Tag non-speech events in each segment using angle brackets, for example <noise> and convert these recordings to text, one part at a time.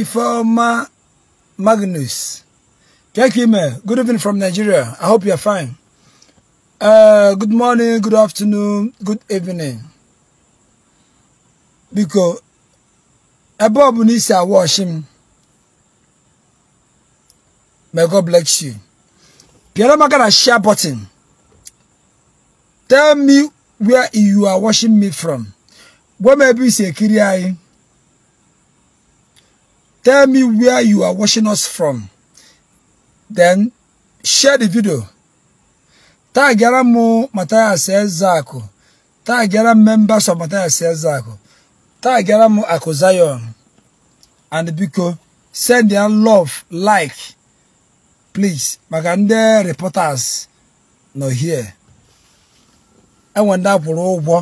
Ifoma Magnus. Kekime, good evening from Nigeria. I hope you are fine. Uh, good morning, good afternoon, good evening. Because above, ọ bụ n'isi May God bless you. Piara maka share button. Tell me where you are watching me from. Gwam ebe isi ekiri Tell me where you are watching us from. Then share the video. Tagara mu mataya Ezeaku. Tagara members of Matthias Ezeaku. Tagara mu Akozayon. And Biko, send their love, like, please. Maka ndị reporters nọ here. Enwe ndị akwụrụ ụgwọ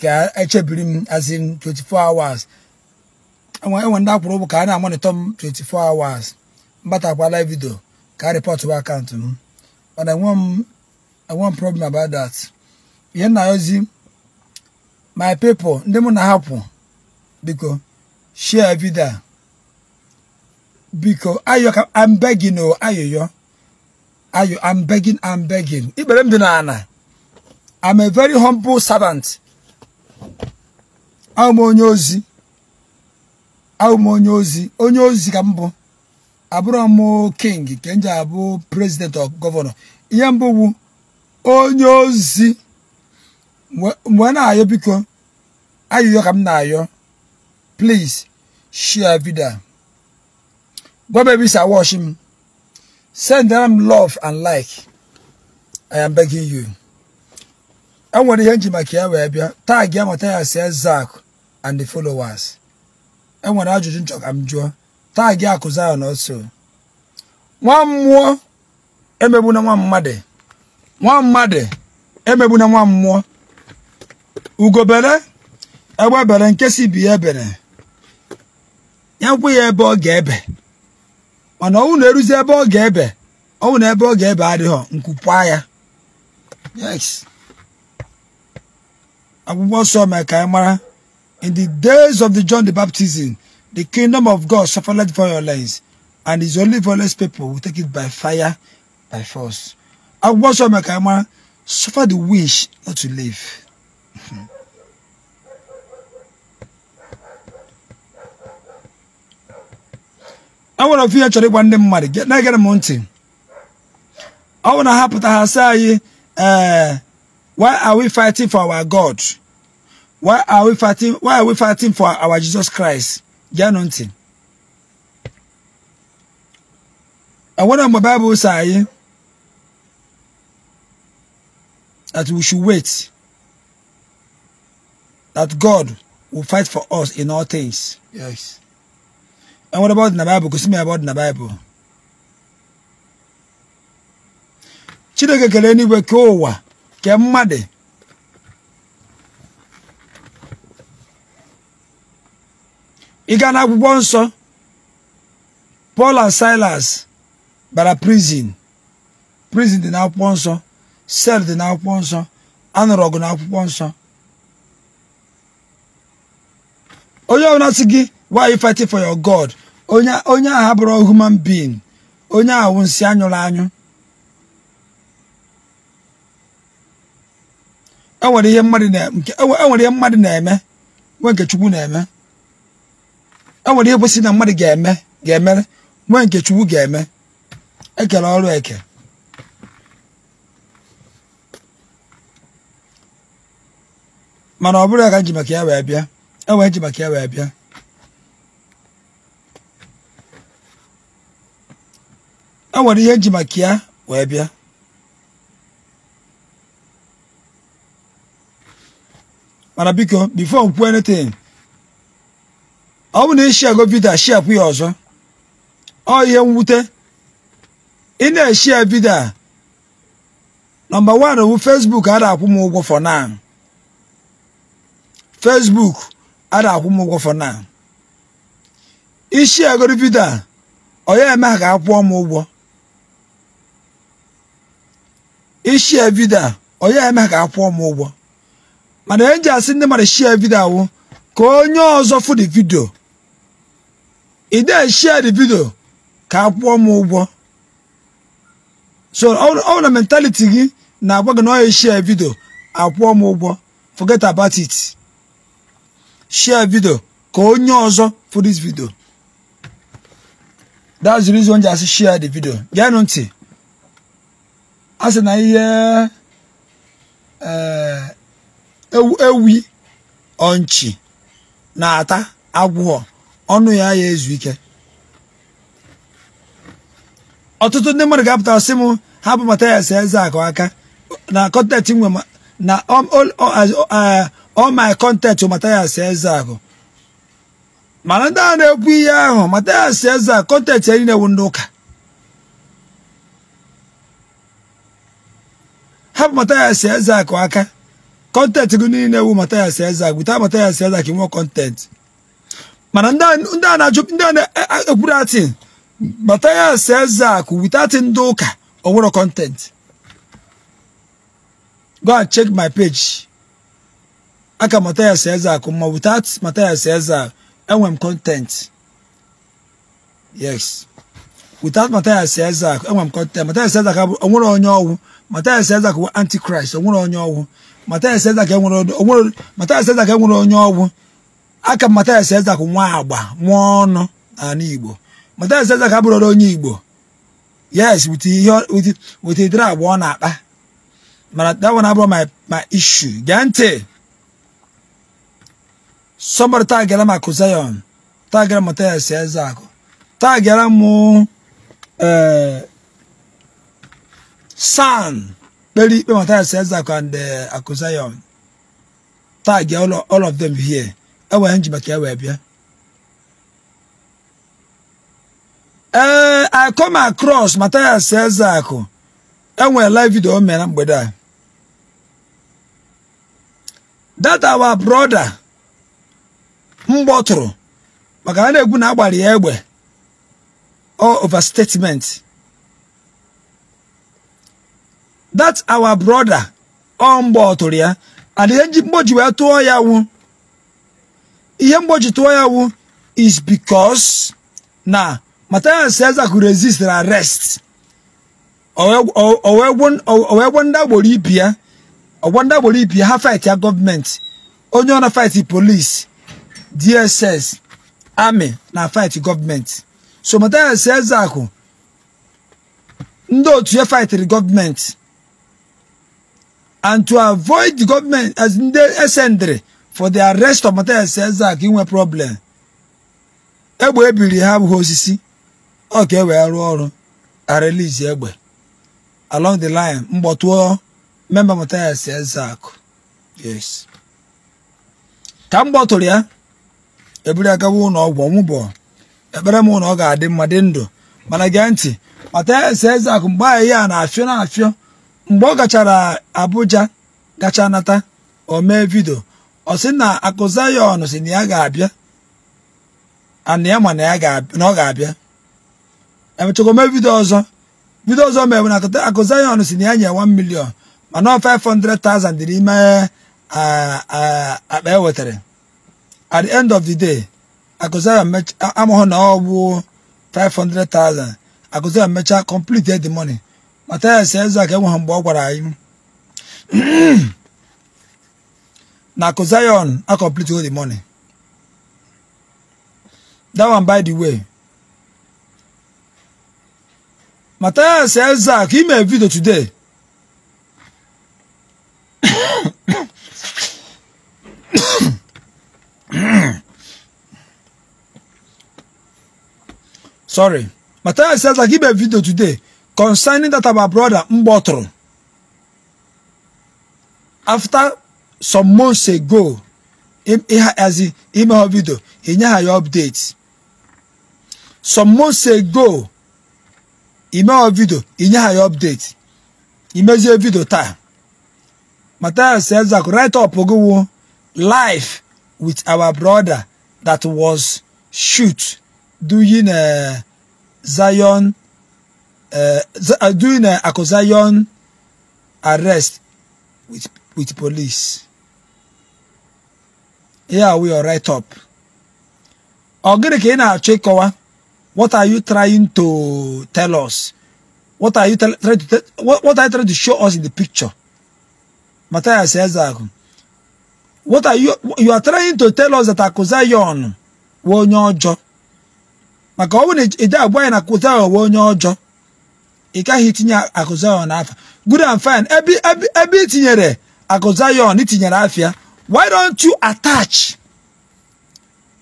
ka echebiri m as in 24 hours. enwe ndị akwụrụ ụgwọ ka a na-amonitọ m 24 hours mbatakwa live video ka a rịpọtụ akaụntụ m mana enwe m problem about that ihe nna ozi my people ndị mụ na-ahapụ biko share vidio biko ayo I'm o ayoyo ayo I'm ambegin ambegin ikpere m dị n'ala I'm a very humble servant abụ m onye ozi abụ m onye ozi onye ozi ka mbụ abụrụ m king ka m ji abụ president of gọvanọ ihe mbụ bụ onye ozi mgbe na-ayọ biko ayịyọ ka m na-ayọ please share video gwaba ebe isi awash m sendara m love and like i am begging you enwere ihe njimaka ya wee bịa taa gị amata ya si zak and the followers enwere ajụjụ nchọ ka m jụọ taa gị akụzi Zion ọsọ nwa mmụọ emegbuna nwa mmadụ nwa mmadụ emegbuna nwa mmụọ ugobere egbebere nke si bi ya ebere ya nkwụ ya ebe ọ ga-ebe mana ọnwụ na-eruzi ebe ọ ga-ebe ọnwụ na ebe ọ ga-ebe adịghọ nkwupụa ya akwụkwọ nsọ mee ka anyị mara In the days of the John the Baptism, the kingdom of God suffered violence, and his only violence people will take it by fire, by force. And what's on my camera? Suffer the wish not to live. <laughs> I want to feel actually one day money. Get now get a mountain. I want to happen to her say, uh, why are we fighting for our God? Why are we fighting? Why are we fighting for our Jesus Christ? Janontin. And what my Bible say that we should wait. That God will fight for us in all things. Yes. And what about in the Bible? Because me about in the Bible. Chineke keleni wekowa kemade. ị gaa n'akwụkwọ nsọ Paul and Silas bara prison prison dị n'akwụkwọ nsọ sel dị n'akwụkwọ nsọ anụrụ ọgụ n'akwụkwọ nsọ onye ọbụla sị gị why you fighting for your God onye onye ahụ abụrụ human being onye ahụ nsị anyụrụ anyụ enwere e e ihe mmadụ na-eme nwe nke Chukwu na-eme enwere ihe kwesịrị na mmadụ ga-eme ga-emere nwa nke Chukwu ga-eme ekele ọrụ eke mana ọ bụrụ ya ka nji maka ya wee bịa enwere nji maka ya wee bịa enwere ihe nji maka ya wee bịa mana biko before m kwuo anything ọ bụ na ishiago e vidio shiapụ ya ọzọ ọ ihe mwute ị na-eshia vidio a nọmba wan bụ fesbuk a na-akwụ m ụgwọ for now fesbuk a na-akwụ m ụgwọ for now ishiago vidio a ọ ya eme ha ka a kwụọ m ụgwọ ishia vidio a ọ ya eme ha ka a kwụọ m ụgwọ mana eji asị ndị mmadụ shia vidio awụ ka onye ọzọ fụ the vidio ị dee share di vidio ka a kwụọ m ụgwọ so ọ na mentaliti gị na-agwa gị na ọ share vidio akwụọ m ụgwọ forget about it share video ka onye ọzọ for this video that's the reason why asị share the video geenụ ntị a sị na ihe eh, ewi ọnchi na-ata agwụghọ ọnụ ya ya ezu ike ọtụtụ ndị mmadụ ga-apụta ọsị m si uh, eze akụ aka na kọntent nwe na all my content Mathias Ezeaku mana ndị a na-ekwu ihe ahụ Mathias Ezeaku kọntent ya niile wụ ndị ụka hapụ Mathias Ezeaku aka kọntent gị niile wu Mathias Ezeaku wita Mathias Ezeaku nwee kọntent mana ndị a na-ajụ ndị a na-ekwuru e, e, atin bata ya se zak without ndị ụka ọwụrọ content go and check my page aka eze Ezeaku ma without Matthias Ezeaku enwe m content yes without Matthias Ezeaku enwe m content Matthias Ezeaku onwere onye ọgwụ Matthias Ezeaku bụ antichrist onwere onye ọgwụ Matthias Ezeaku enwere onye ọgwụ aka Mathias Ezeaku nwa agba nwa ọnụ n'ala Igbo Mathias Ezeaku abụrụla onye Igbo yes wit idere agba ọ na-akpa mana that one abụrụ my issue gee ntị somebody tagara Mark Zion tagara Mathias Ezeaku tagara mụ eh, san kpere ikpe Mathias Ezeaku and eh, Akụ Zion tag all of them here ewee nji maka ya wee bịa ee eh, I come across Mathias Ezeaku enwere live video o mere na mgbede a that our brother mgbọtụrụ maka a na-egwu na agbari ya egbe or statement that our brother ọ mgbọtụrụ ya and ihe mgboji wee tụọ ya wụ ihe mgbochitụọ ya wụ is because na Mathias Eze kwuru resistere arrest owee gwo ndị agboro ibi ya ọgwọ ndị agboro ibi ya ha fight ya gọọmenti onye ọ na fight police, DSS army, na fight gọọmenti so Mathias Ezeaku ndị otu ya fightịrị gọọmenti and to avoid the government as ndị esendịrị for the arrest of material sense ka inwe problem egbe ebiri ha abụghị osisi ọ ka e wee rụọ ọrụ arelizi egbe along the line mgbọtụọ member material sense akụ yes ka m gbọtụrụ ya eburu ya ụlọ ọgwụ ọmụbọ ekpere m ọ ga-adị mma dị ndụ mana gee ntị material sense akụ mgbe anyị ya na-afịọ na-afịọ mgbe ọ gachara Abuja gacha nata o mee vidio ọ sị na akụ Zayọn si na ya ga-abịa ana ya ma na ya ga-abịa emechakwa ome vidio ọzọ vidio ọzọ mere na akụ Zayọn si na ya nye 1 milion mana ọ 500,000 dị n'ime akpa e wetara at the end of the day akụ Zayọn amụghị na ọ bụ 500,000 akụ Zayọn mechaa complete the money mata ya si eze aka enweghị mgbe ọ gwara anyị <clears throat> Now, Zion I complete all the money that one by the way Matthias Elzak he made a video today <coughs> sorry Matthias Elzak he made a video today concerning that our brother Mbotro after some months ago azi ime ha vidio inye ha ya update some months ago ime ha He inye ha ya update imezie vidio taa Matthias Ezak write up ogowo live with our brother that was shoot doing a Zion uh, eh, eh, during uh, Akozion arrest with with police. here we are right up ọ gịnị ka ị na-achọ ịkọwa what are you trying to tell us what are you trying to what are you trying to show us in the picture Matthias Ezeaku what are you you are trying to tell us that Akụzayọn wee onye ọjọọ maka ọ bụrụ na ije agwa anyị na Akụzayọn wee onye ọjọọ ị gaghị itinye Akụzayọn n'afọ. good and fine ebe ebe ebe itinyere Akụzayọn itinyere afịa Why don't you attach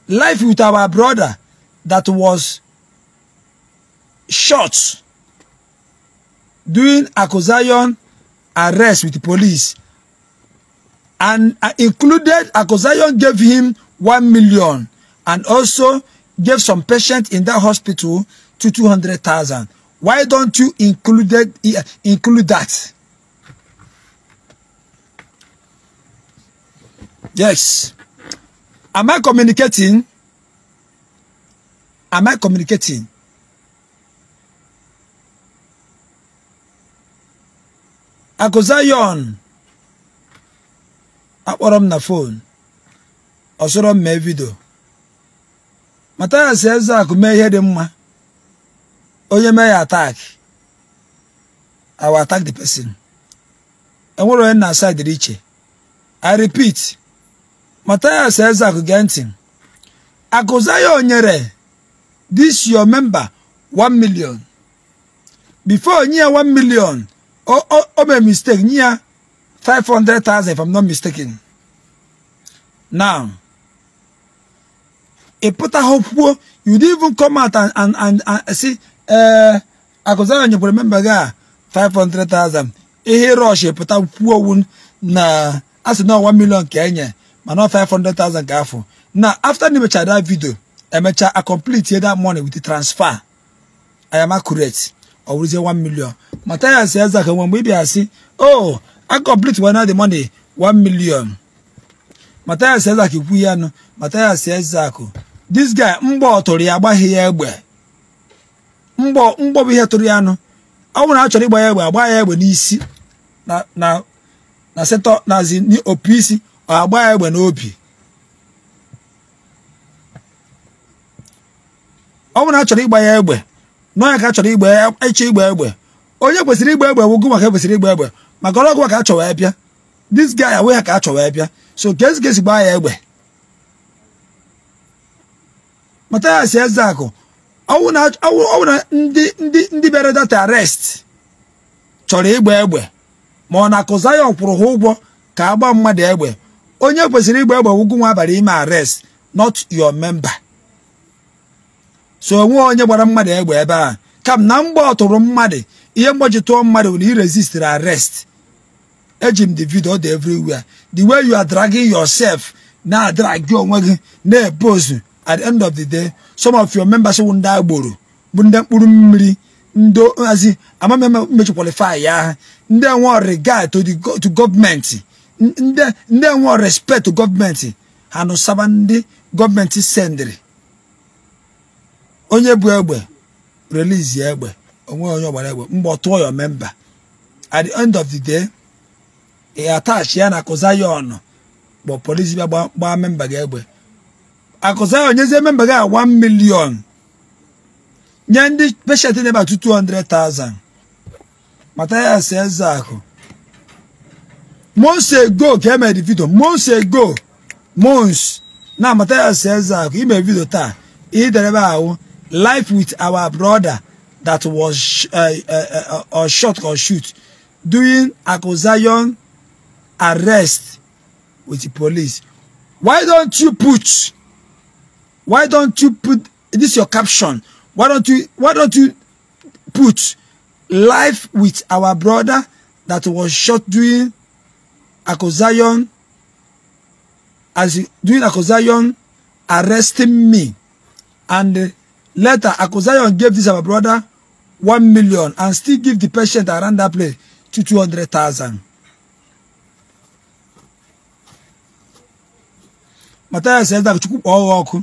life with our brother that was shot during Akosayon arrest with the police and uh, included Akosayon gave him one million and also gave some patient in that hospital to 200,000. Why don't you included, uh, include that? Yes. Am I communicating? Am I communicating? Akozayon akpọrọ m na fon ọsọrọ m mee vidio mata ya eze akụ mee ihe dị mma onye mee ya attack I will attack the person enwere onye na-asa dịrị iche I repeat Matthias Ezeaku gee ntị Akụzaya nyere this your member 1 million before nye ya 1 million o mee mistake nye 500,000 if I'm not mistaken now ị e pụtaghị kwuo you didn't even come out and and and and see ee Akụzaya nyekwara member gị a 500,000 ihe rush pụta kwuo na a sị na 1 million ka enye mana 500,000 ka afọ na after ndị emechara that video emecha a complete that money with the transfer I am accurate ọ wụrụzie 1 million Mathias Ezeaka mgbe ị bịa sị oh I complete one the money 1 million Mathias Ezeaka kwu ya nụ Mathias Ezeaka this guy mgbọ tụrụ ya agbaghị ya egbe mgbọ mgbọ bụ ihe tụrụ ya nụ ọ na a chọrọ ịgba ya egbe agba ya egbe n'isi na na na setọ nazi opi isi agba ya egbe n'obi ọ bụrụ na a chọrọ ịgba ya egbe nọ ya ka a chọrọ igba ya ịchọ egbe onye kwesịrị igba egbe wụgụ maka kwesịrị igba egbe maka ọrụ ọgụ ka a chọwa ya bịa this guy awụ ya ka a chọwa ya bịa so gesi gesi gbaa ya egbe Mathias Ezeaku ọwụ na ndị ndị ndị bịara data arest chọrọ ịgba egbe ma ọ na akụza ya ọ kwụrụ ha ụgwọ ka a gbaa mmadụ egbe onye kwesịrị ịgba egbe gwụgwụ nwa abalị ime arest not your member so onwe onye gbara mmadụ egbe ebe a kam na mgbe ọtụrụ mmadụ ihe mgbochi tụọ mmadụ na i resistere arest eji m the video dị everywhere the way you are dragging yourself na-adragi onwe gị na-epose at the end of the day some of your members ndị agboro bụ ndị mkpụrụ mmiri ndị hazi amameme mmechi ya ndị enwe regard to gọọmenti ndị enwe respect gọọmenti ha nụsaba ndị gọọmenti sendiri onye bụ egbe release ya egbe onwe onye ọgbara egbe mgbe ọ tụọ ya memba at the end of the day ị atachi ya na akụza ya ọnụ kpọ polisi bịa gbaa memba gị egbe akụza ya onyezie memba gị a 1 million nye ndị peshent na-eba 200,000 mata ya si eze ahụ Mose go kema di video. Mose go. Mons. Na mataya seza ime video ta. Ii dereba awo. Life with our brother that was uh, uh, uh, or shot or shoot during Akozayon arrest with the police. Why don't you put? Why don't you put this your caption? Why don't you? Why don't you put life with our brother that was shot during Akozayon, as doing Akozayon, arresting me and later Akozayon gave this our brother one million and still give the patient around that place to two hundred thousand. Mathias says that Chukwu kpọọ ọkụ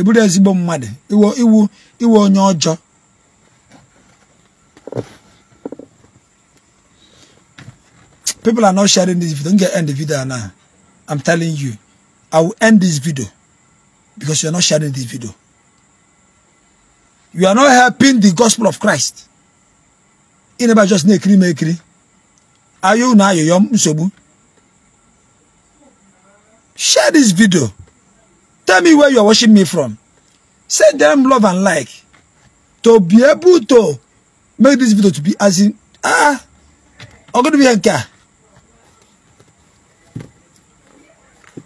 ịbụrụ ezigbo mmadụ iwu iwu iwu onye ọjọọ People are not sharing this video. Don't get end the video now. I'm telling you. I will end this video because you are not sharing this video. You are not helping the gospel of Christ. Ineba just nekiri mekiri. Ayo na ayo yom nsobu. Share this video. Tell me where you are watching me from. Send them love and like. To be able to make this video to be as in ah. I'm going to be here.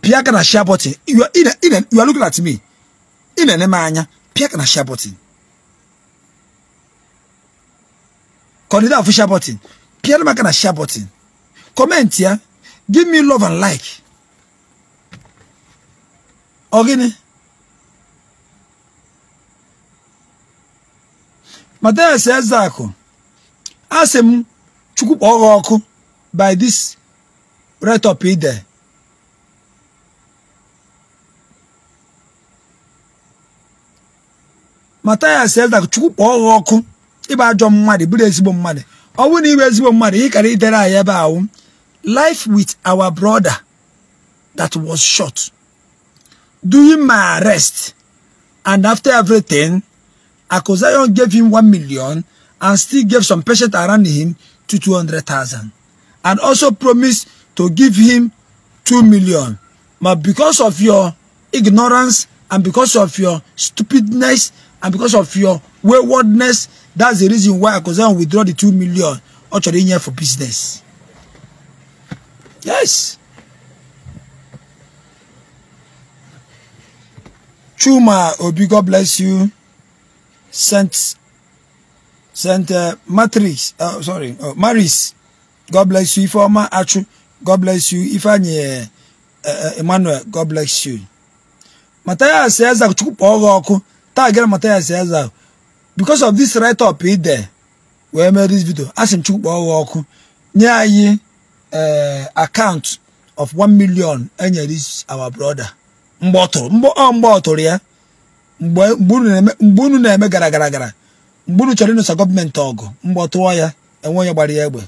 pia kana na share button you are, in a, in a, you are looking at me ị na-ene pia kana pịa aka na share button kọdịda afụ share button pịara m aka share button kọmentị ya give me love and like ọ gịnị Mathias Ezeaku asị m chukwu kpọọ ọkụ by this right up ide mataya sel da chukwu kpọọ ọghọ ọkụ ịbụ ajọ mmadụ bụrụ ezigbo mmadụ ọ bụrụ na ịbụ ezigbo mmadụ ị kara idere anyị ebe ahụ life with our brother that was short during my arrest and after everything Akosayon gave him one million and still gave some patients around him to 200,000 and also promised to give him 2 million. But because of your ignorance and because of your stupidness and because of your waywardness that's the reason why I consider withdraw the two million ọ̀chọ̀rọ̀ yẹn for business yes Chuma Obi God bless you sent sent uh, Matrix uh, sorry uh, Maris God bless you Ifeoma Achu God bless you Ifeanyi uh, uh Emmanuel God bless you Mataya says that you kpọọ ọkụ. taa gara Mathias Ezeaku because of this right up ide wee mee this video asị m Chukwu kpọọ ha ọkụ nye anyị eh, account of 1 million enyere our brother mgbe ọ tụrụ mgbe ọ tụrụ ya mgbe unu na-eme gara gara gara mgbe unu chọrọ ịnụsa gọọmenti ọgụ mgbe ọ tụọ ya enwe onye gbara ya egbe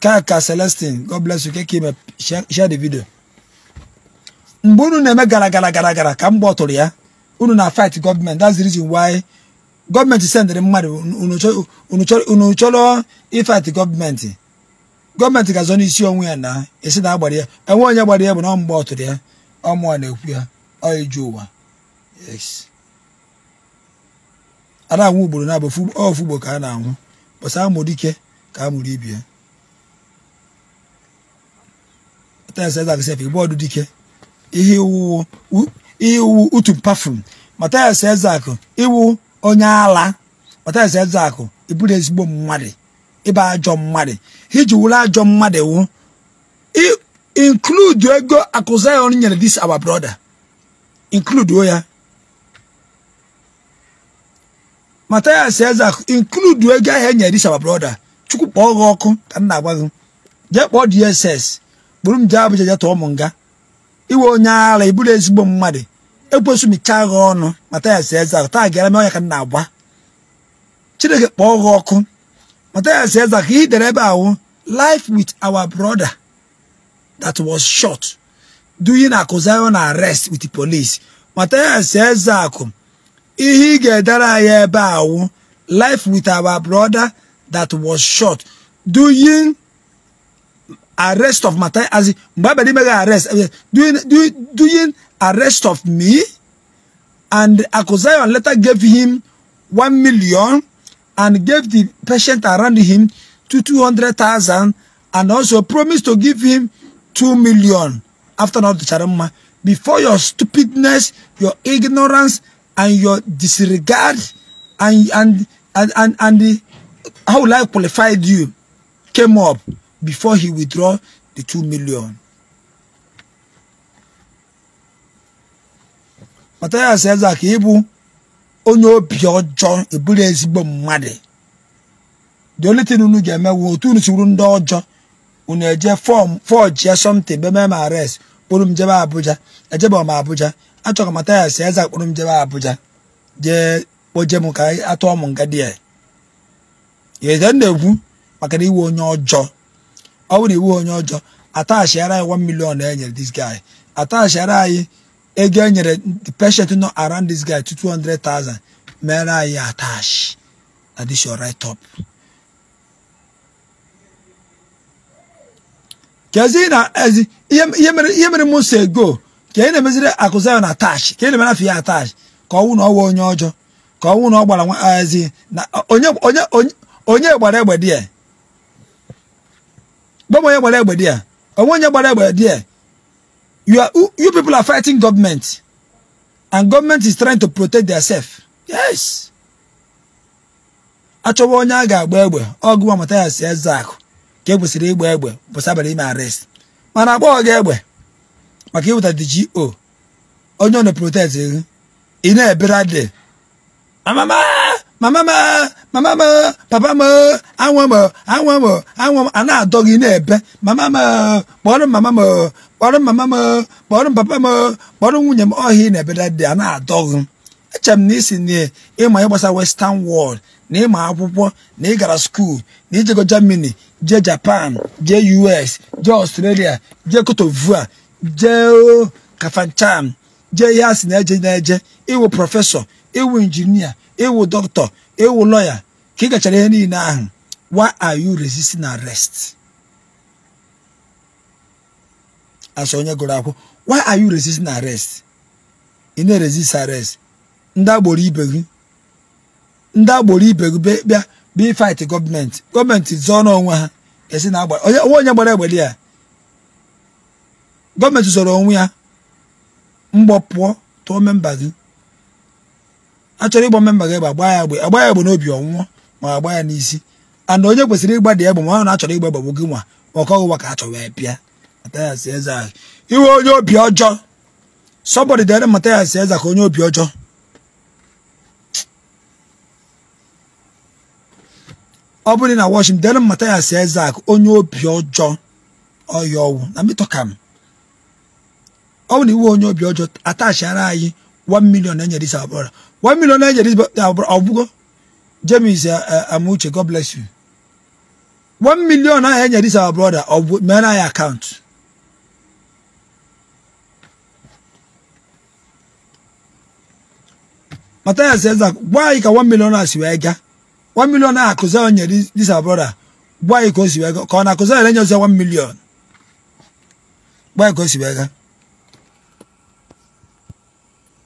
kaka celestin God bless you keke ime share the video mgbe unu na-eme gara gara gara gara ka mgbe ọ tụrụ ya unu na fight gọọmenti that's the reason why gọọmenti sendịrị mmadụ unu chọrọ ịfight gọọmenti gọọmenti ga-azọ n'isi onwe ya na esi na agbara ya enwe onye gbara ya bụ na ọ mgbe ọtụrụ ya ọ mụọ na-ekwu ya ọ eju ụwa a na ugboro na-abụ ka a na-anwụ a a iwu utu pafum Mathias Ezeaku iwu onye ala Mathias Ezeaku ịbụrụ ezigbo mmadụ ịba ajọ mmadụ iji wuru ajọ mmadụ wu include ego akụzayon nyere this our brother include ya Mathias Ezeaku include ego ahụ e nyere this our brother chukwu kpọọ gị ọkụ ka m na-agwa gị jee kpọọ DSS bụrụ m jee Abuja jee tụọ m nga iwe onye ịbụrụ ezigbo mmadụ ekwesu michaa gị ọnụ mata ya si eze taa gara m ọnya ka na-agba chineke kpọọ gị ọkụ mata ya si eze ka ihe ebe ahụ life with our brother that was shot duyi na akụziri na arrest with the police mata ya si eze akụ ihe ị ga-edere anyị ebe ahụ life with our brother that was short, duyi arrest of mata as mgbe abịa n'ime gị arrest eh, duyi arrest of me. And Akosayon later gave him one million and gave the patient around him to 200,000 and also promised to give him two million after not the charama. Before your stupidness, your ignorance, and your disregard, and and and and, and the, how life qualified you came up before he withdraw the two million. matayas ka ịbụ onye obi ọjọọ eburu ezigbo mmadụ the only thing unu ga-eme wu otu unu ndị ọjọọ unu eje fọm fọjie something be mem arrest kpụrụ m jebe Abuja ejebe ọma Abuja achọrọ m matayas ezak kpụrụ m jebe Abuja jee kpoje m ka atụọ m nga dị ya eze na-ekwu maka na iwu onye ọjọọ ọ bụrụ iwu onye ọjọọ atachiara anyị 1 million e dis this guy atachiara anyị ego enyere the patient nọ around this guy to 200,000 mere anyị attach na this your right up kezi na ezi ihe mere ihe mere si ego ka ị na-emeziri akụzayo na attach ka ị na-emere afọ ya attach ka ọnwụ na ọwa onye ọjọọ ka ọnwụ na ọ gbara ezi na onye onye onye gbara egbe die dị ya onwe onye gbara egbe die. You, are, you people are fighting government. And government is trying to protect themselves. Yes. Achọwa onye a ga-agba egbe ọgụwa Mathias Ezeaku ka e kwesịrị ịgba egbe bụsị abalị arrest mana agbaghọ gị egbe maka ịwụta DGO onye ọ na-protect ị na amama mama m mama m papa m anwa m anwa m anwa m a na-adọ gị ebe mama m kpọrọ mama m kpọrọ mama m kpọrọ papa m kpọrọ nwunye m ọhịa na-ebeda dị a na-adọ gị echere m na isi na ịma ịgbasa western world na ịma akwụkwọ na ị gara skuul na ijego germany jee japan jee us jee australia jee kotovua d'ivoire jee kafanchan jee ihe a sị na-eje na-eje ịwụ prọfesọ ịwụ injinia ịwụ dọkịta ịwụ lọya ka ị gachara ihe niile ahụ why are you resisting arrest asọ onye gụrụ akwụ why are you resisting arrest ị na-resist arrest ndị agboro ibe gị ndị agboro ibe gị bịa bịa fight gọọmenti gọọmenti zọọ n'onwe ha esi na agbara onye onye gbara egbeli ya gọọmenti zọrọ onwe ya mgbọpụọ pụọ tụọ memba gị achọrọ chọrọ ịgba mmemme gị egbe ya egbe agba ya egbe n'obi ọnwụọ ma agba ya n'isi and onye kwesịrị ịgba dị egbe ma ọ na-achọrọ ịgba gbagbo gị nwa maka ọgụwa ka a chọrọ ya pịa Eze ahụ iwe onye obi ọjọ somebody dere Mathias Eze ka onye obi ọjọ ọ bụrụ na washington dere Mathias Eze ahụ onye obi ọjọ ọya ọwụ na mitọkam ọ bụ na iwe onye obi ọjọ atachara anyị 1 na enyere isi abụọ One million Nigerians, but uh, Obugo. James is uh, uh, Amuche. God bless you. One million Nigerians, our brother, of men I account. Matthias says that why can one million as you aga? One million akuza on your this, this our brother. Why because you aga? Kon akuza on your one million. Why because you aga?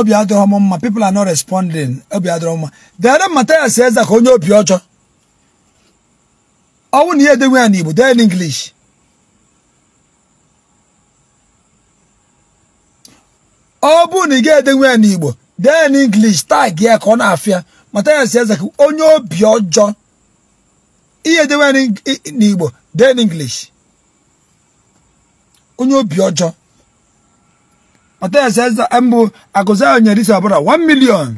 obi adịghị m mma people are not responding obi adịghị m dere mataya si Eze ka onye obi ọjọọ ọnwụ na ihe edenwe ya n'Igbo dee n'inglish ọ bụ na ị ga-edenwe ya n'Igbo dee n'inglish tag ya ka ọ na-afịa mataya si Eze ka onye obi ọjọọ ihe edenwe ya n'Igbo dee n'inglish onye obi ọjọọ ọtaesesa mbụ akụza nyere isi ọbụla 1 million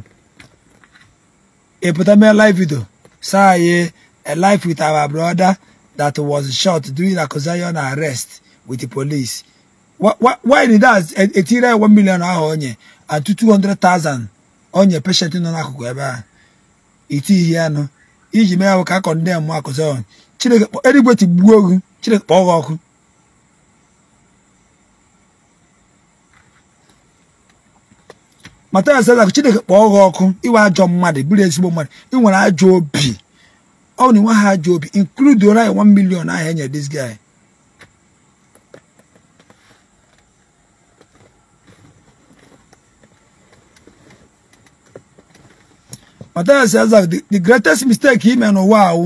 ịpụta e mee live video saa anyị a life with our brother that was shot during Akụzayon arrest with the police why dat that etire 1 million ahụ onye and 200,000 onye patient nọ n'akụkụ ebe ahụ itighi ihe anụ iji mee ahụ ka a kọndem Akụzayon Chineke erigwe tigbuo ogu Chineke kpọọ gị ọkụ Mathias Ezeaku Chineke kpọọ gị ọkụ iwe ajọ mmadụ bụrụ ezigbo mmadụ ị nwere ajọ obi ọ na ha ajọ obi include ora ya 1 ahụ enyere e this guy Mathias Ezeaku the greatest mistake ime n'ụwa ahụ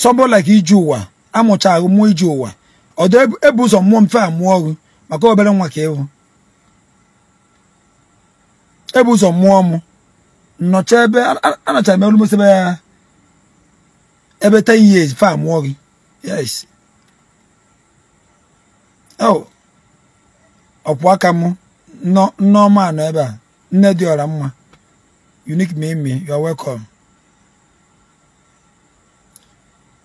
somebody like iji ụwa amụcha ahụ mụọ iji ụwa ọ dị ebu ụzọ mmụọ mfe mụọ ọhụ maka obere nwa ka ịhụ ebe ụzọ mụọ mụ nọcha ebe anachara m almost ebe ya ebe 10 years fa mụọ gị yes oh. ọkwụ aka mụ nneọma nọ ebe a nne dị ọra mma unique mimi you are welcome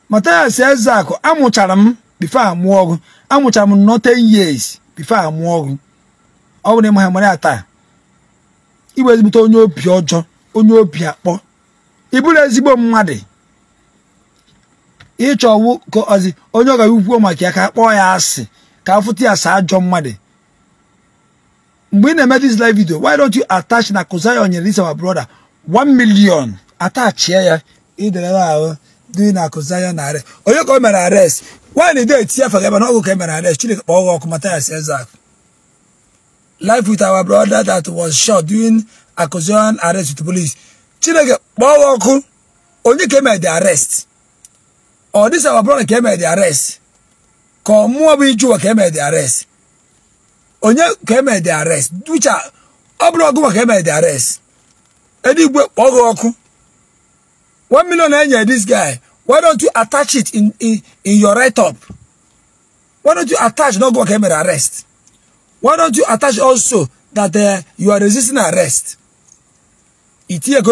Mathias Ezeaku amụchara m before amụọ gị amụchara m nọ 10 years before amụọ gị ọ bụrụ na ịmaha mara ya taa iwe ezigbote onye obi ọjọ onye obi akpọ ị bụrụ ezigbo mmadụ ịchọwụ ka ọzi onye ọ ga-ekwuo maka ya ka akpọ ya asị ka afụta ya saa ajọ mmadụ mgbe ị na-eme this live video why don't you attach na Kozayo nyere this our brother one million atachie ya idelere ahụ dị na Kozayo na onye ka o mere arrest nwaanyị na-ede eti na ọgụ ka e mere ares Chineke kpọọ ọkụ mata ya si eze akụ life with our brother that was shot during accusation arrest with the police chineke kpọwa ọkụ onye came e at the arrest or this our brother came e at the arrest ka ọmụọ bụ ijuwa came e at the arrest Only came at the arrest ducha ọ bụrụ ọgụ maka came at the arrest Eddie, kpọọ gị ọkụ one million enye this guy why don't you attach it in, in, in your write up why don't you attach No, go came at the arrest why don't you attach also that uh, you are resisting arrest itinye ka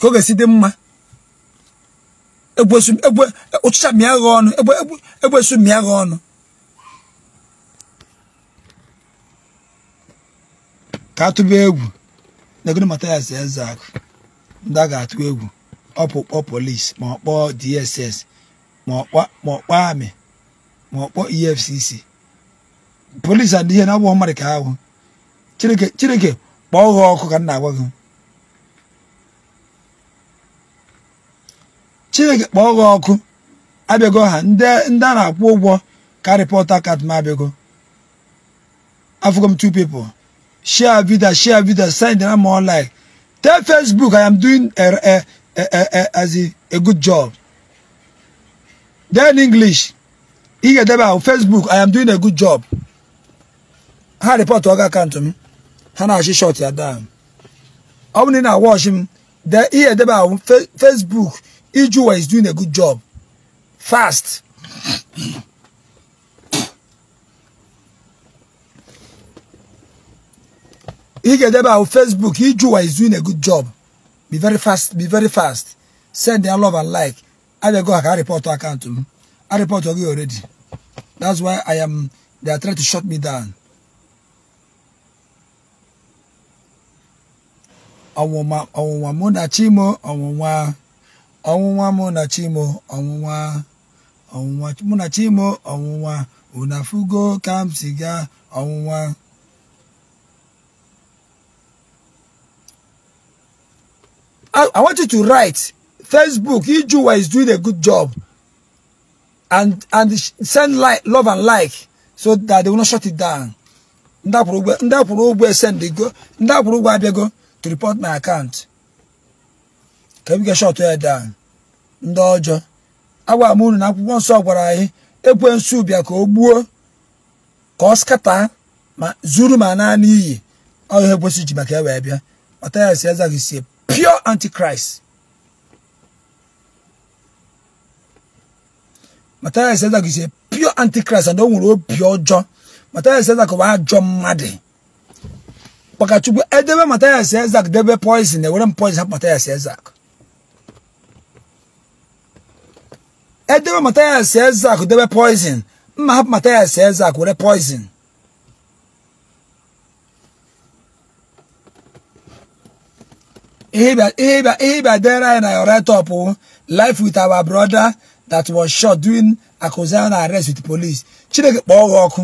ọ ga-esi dị mma ụchịcha mịa gha ọnụ egbesu mịa gha ọnụ ka atụba egwu negoro matayas eze akụ ndị a ga-atụ egwu ọpụkpọ polisi ma ọ kpọọ dss ma ọ kpọọ amị ma ọ kpọọ efcc polisi adịghị na ọ mmadụ ka ahụ chineke chineke kpọọ ha ọkụ ka m na-agwa gị chineke kpọọ ha ọkụ abịago ha ndị a na-akwụ ụgwọ ka rịpọt akat m abịago afụgo m two people share video share video send na more like tell facebook i am doing a, a, a, a, as a, a good job then english ị ga-edebe ahụ facebook i am doing a good job ha report ọga account m ha na-achị shọt ya daa ọ bụrụ na wọchị m de ihe edebe ahụ Facebook Ijuwa is doing a good job fast ị ga-edebe Facebook Ijuwa is doing a good job be very fast be very fast send their love and like I ha ka ha rịpọtụ akaụntụ m ha rịpọtụ gị already that's why I am they are trying to shut me down ọnwụnwa ọnwụnwa mụ na chimo ọnwụnwa ọnwụnwa mụ na chimo ọnwụnwa ọnwụnwa mụ na chimo ọnwụnwa unafugo Kamsiga ọnwụnwa I, want you to write Facebook Ijuwa is doing a good job and send love and like so that they will not shut it down ndị abịago to report my account ka m ga-eshọtụ ya down ndị ọjọọ agwara m na akwụkwọ nsọ gwara anyị ekwensu bịa ka o gbuo ka ọ skata ma zuru ma naa n'iyi ọ ihe kwesị ji maka ewee bịa ọtaya si eza gị sie pure antichrist mataya seza gị sie pure antichrist and o nwere obi ọjọọ mataya seza ka ọ ajọ mmadụ Ọkachukwu edebe eh, Mathias Ezeaku debe poison ewere eh, m poison hapụ Mathias Ezeaku edebe eh, Mathias Ezeaku debe poison mma hapụ Mathias Ezeaku were poison ihe ịbịa dere anyị na ore top oh. life with our brother that was shot during accusation arrest with police Chineke kpọọ gị ọkụ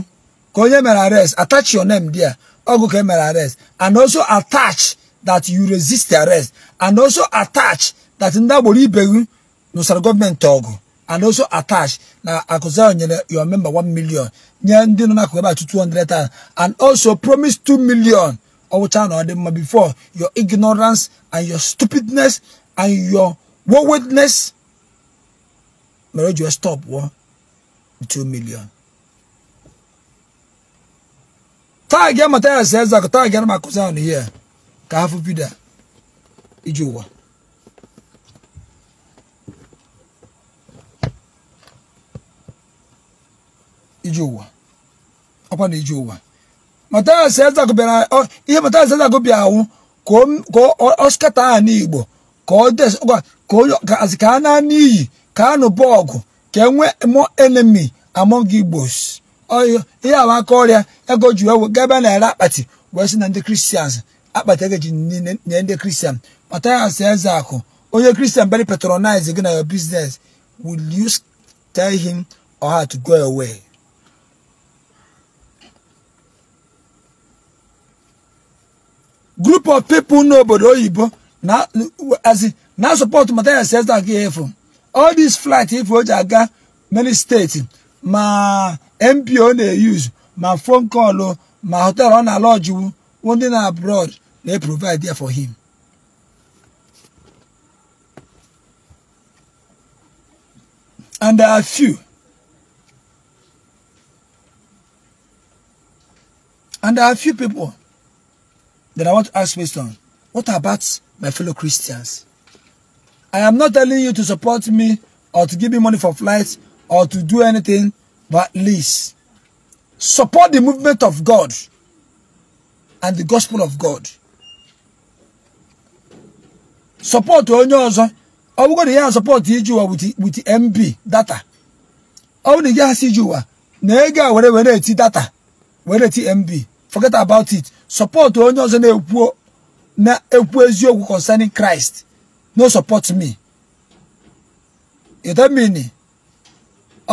ka onye mere arrest attach your name there Oguke my arrest. And also attach that you resist the arrest. And also attach that in that Ndaboli Begun, Nusar government talk, And also attach now. I could say you are member one million. Nye ndi no nakweba to thousand, And also promise two million. Owocha na odemma before your ignorance and your stupidness and your waywardness. Merojo stop one two million. taagia mataya sɛɛza ko taagia no makosa no yɛ ka hafo pi da igye wa igye wa ɔkwa na igye wa mataya sɛɛza ko biara ɔ ihe mataya sɛɛza ko biara ho ka ọ ɔsikata a ni kano bogo ọ mo ɔkwa ka ọ enemy among igbos ọyọ ihe a wakorịa ego ji ewe gaba naira akpati wee sị na ndị kristian akpati ego ji nye ndị kristian Matthias Ezeaku onye kristian very patronize gị na your business will you tell him or her to go away group of people n'obodo oyibo na na support Matthias Ezeaku efu all these flights. ife o ji aga many states ma mpo na-eyuzu ma phone call ma hotel ọ na-alọjiwu ndị na abroad na-eprovide there for him and there are few and there are few people that I want to ask question what about my fellow Christians I am not telling you to support me or to give me money for flights or to do anything But at least support the movement of God and the gospel of God. Support Are we going to hear support ijuwa with, the with the MB data. Are we going to hear ijuwa na ego a were were data were eti MB. Forget about it. Support onye ọzọ na-ekwu na-ekwu eziokwu concerning Christ. No support me. You don't mean it.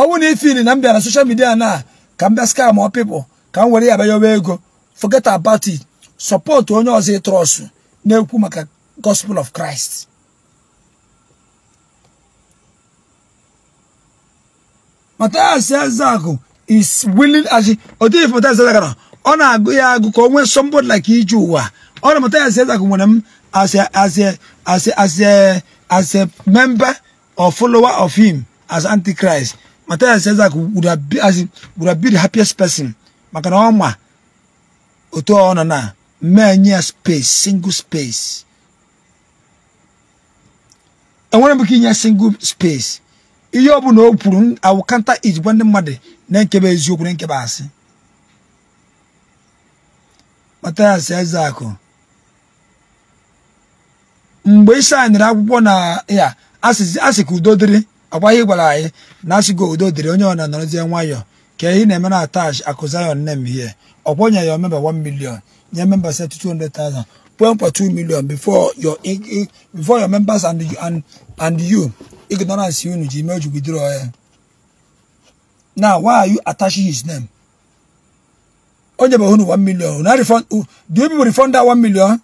ọnwụ na ifili na m bịara soshal midia na ka m bịa skam ọ pipụl ka m were ya ego forget about it support onye ọzọ ịtrọsụ na-ekwu maka gospel of Christ Mathias zago is willing as odif Mathias Ezeaku ọ na-agụ ya agụ ka o nwee somebody like ije ụwa ọ na Mathias Ezeaku nwere m as a as a as a as a member or follower of him as antichrist Matthias Isaac would have been, as would have the happiest person. Maka na ọma otu ọ nọ na mmee nye ya space single space. Enwere m ike inye single space. Ihe ọ bụla o kwuru awụ kanta ijikwa ndị mmadụ na-ekebe eziokwu na nkebe asị. Matthias Isaac mgbe Isai nyere akwụkwọ na ya asị ka udo ọgba ihe gwara anyị na asịgo udo dịrị onye ọna nọrọzie nwayọọ ka ihe na-eme na atach akụzion nem hie ọkwọnye ya member 1 million nye member 200,000 point million before your before your members and you and, and you ignorance unu ji mee jugidoro ya now why are you attaching his name onye bụ hunu 1 million do you people refund that 1 million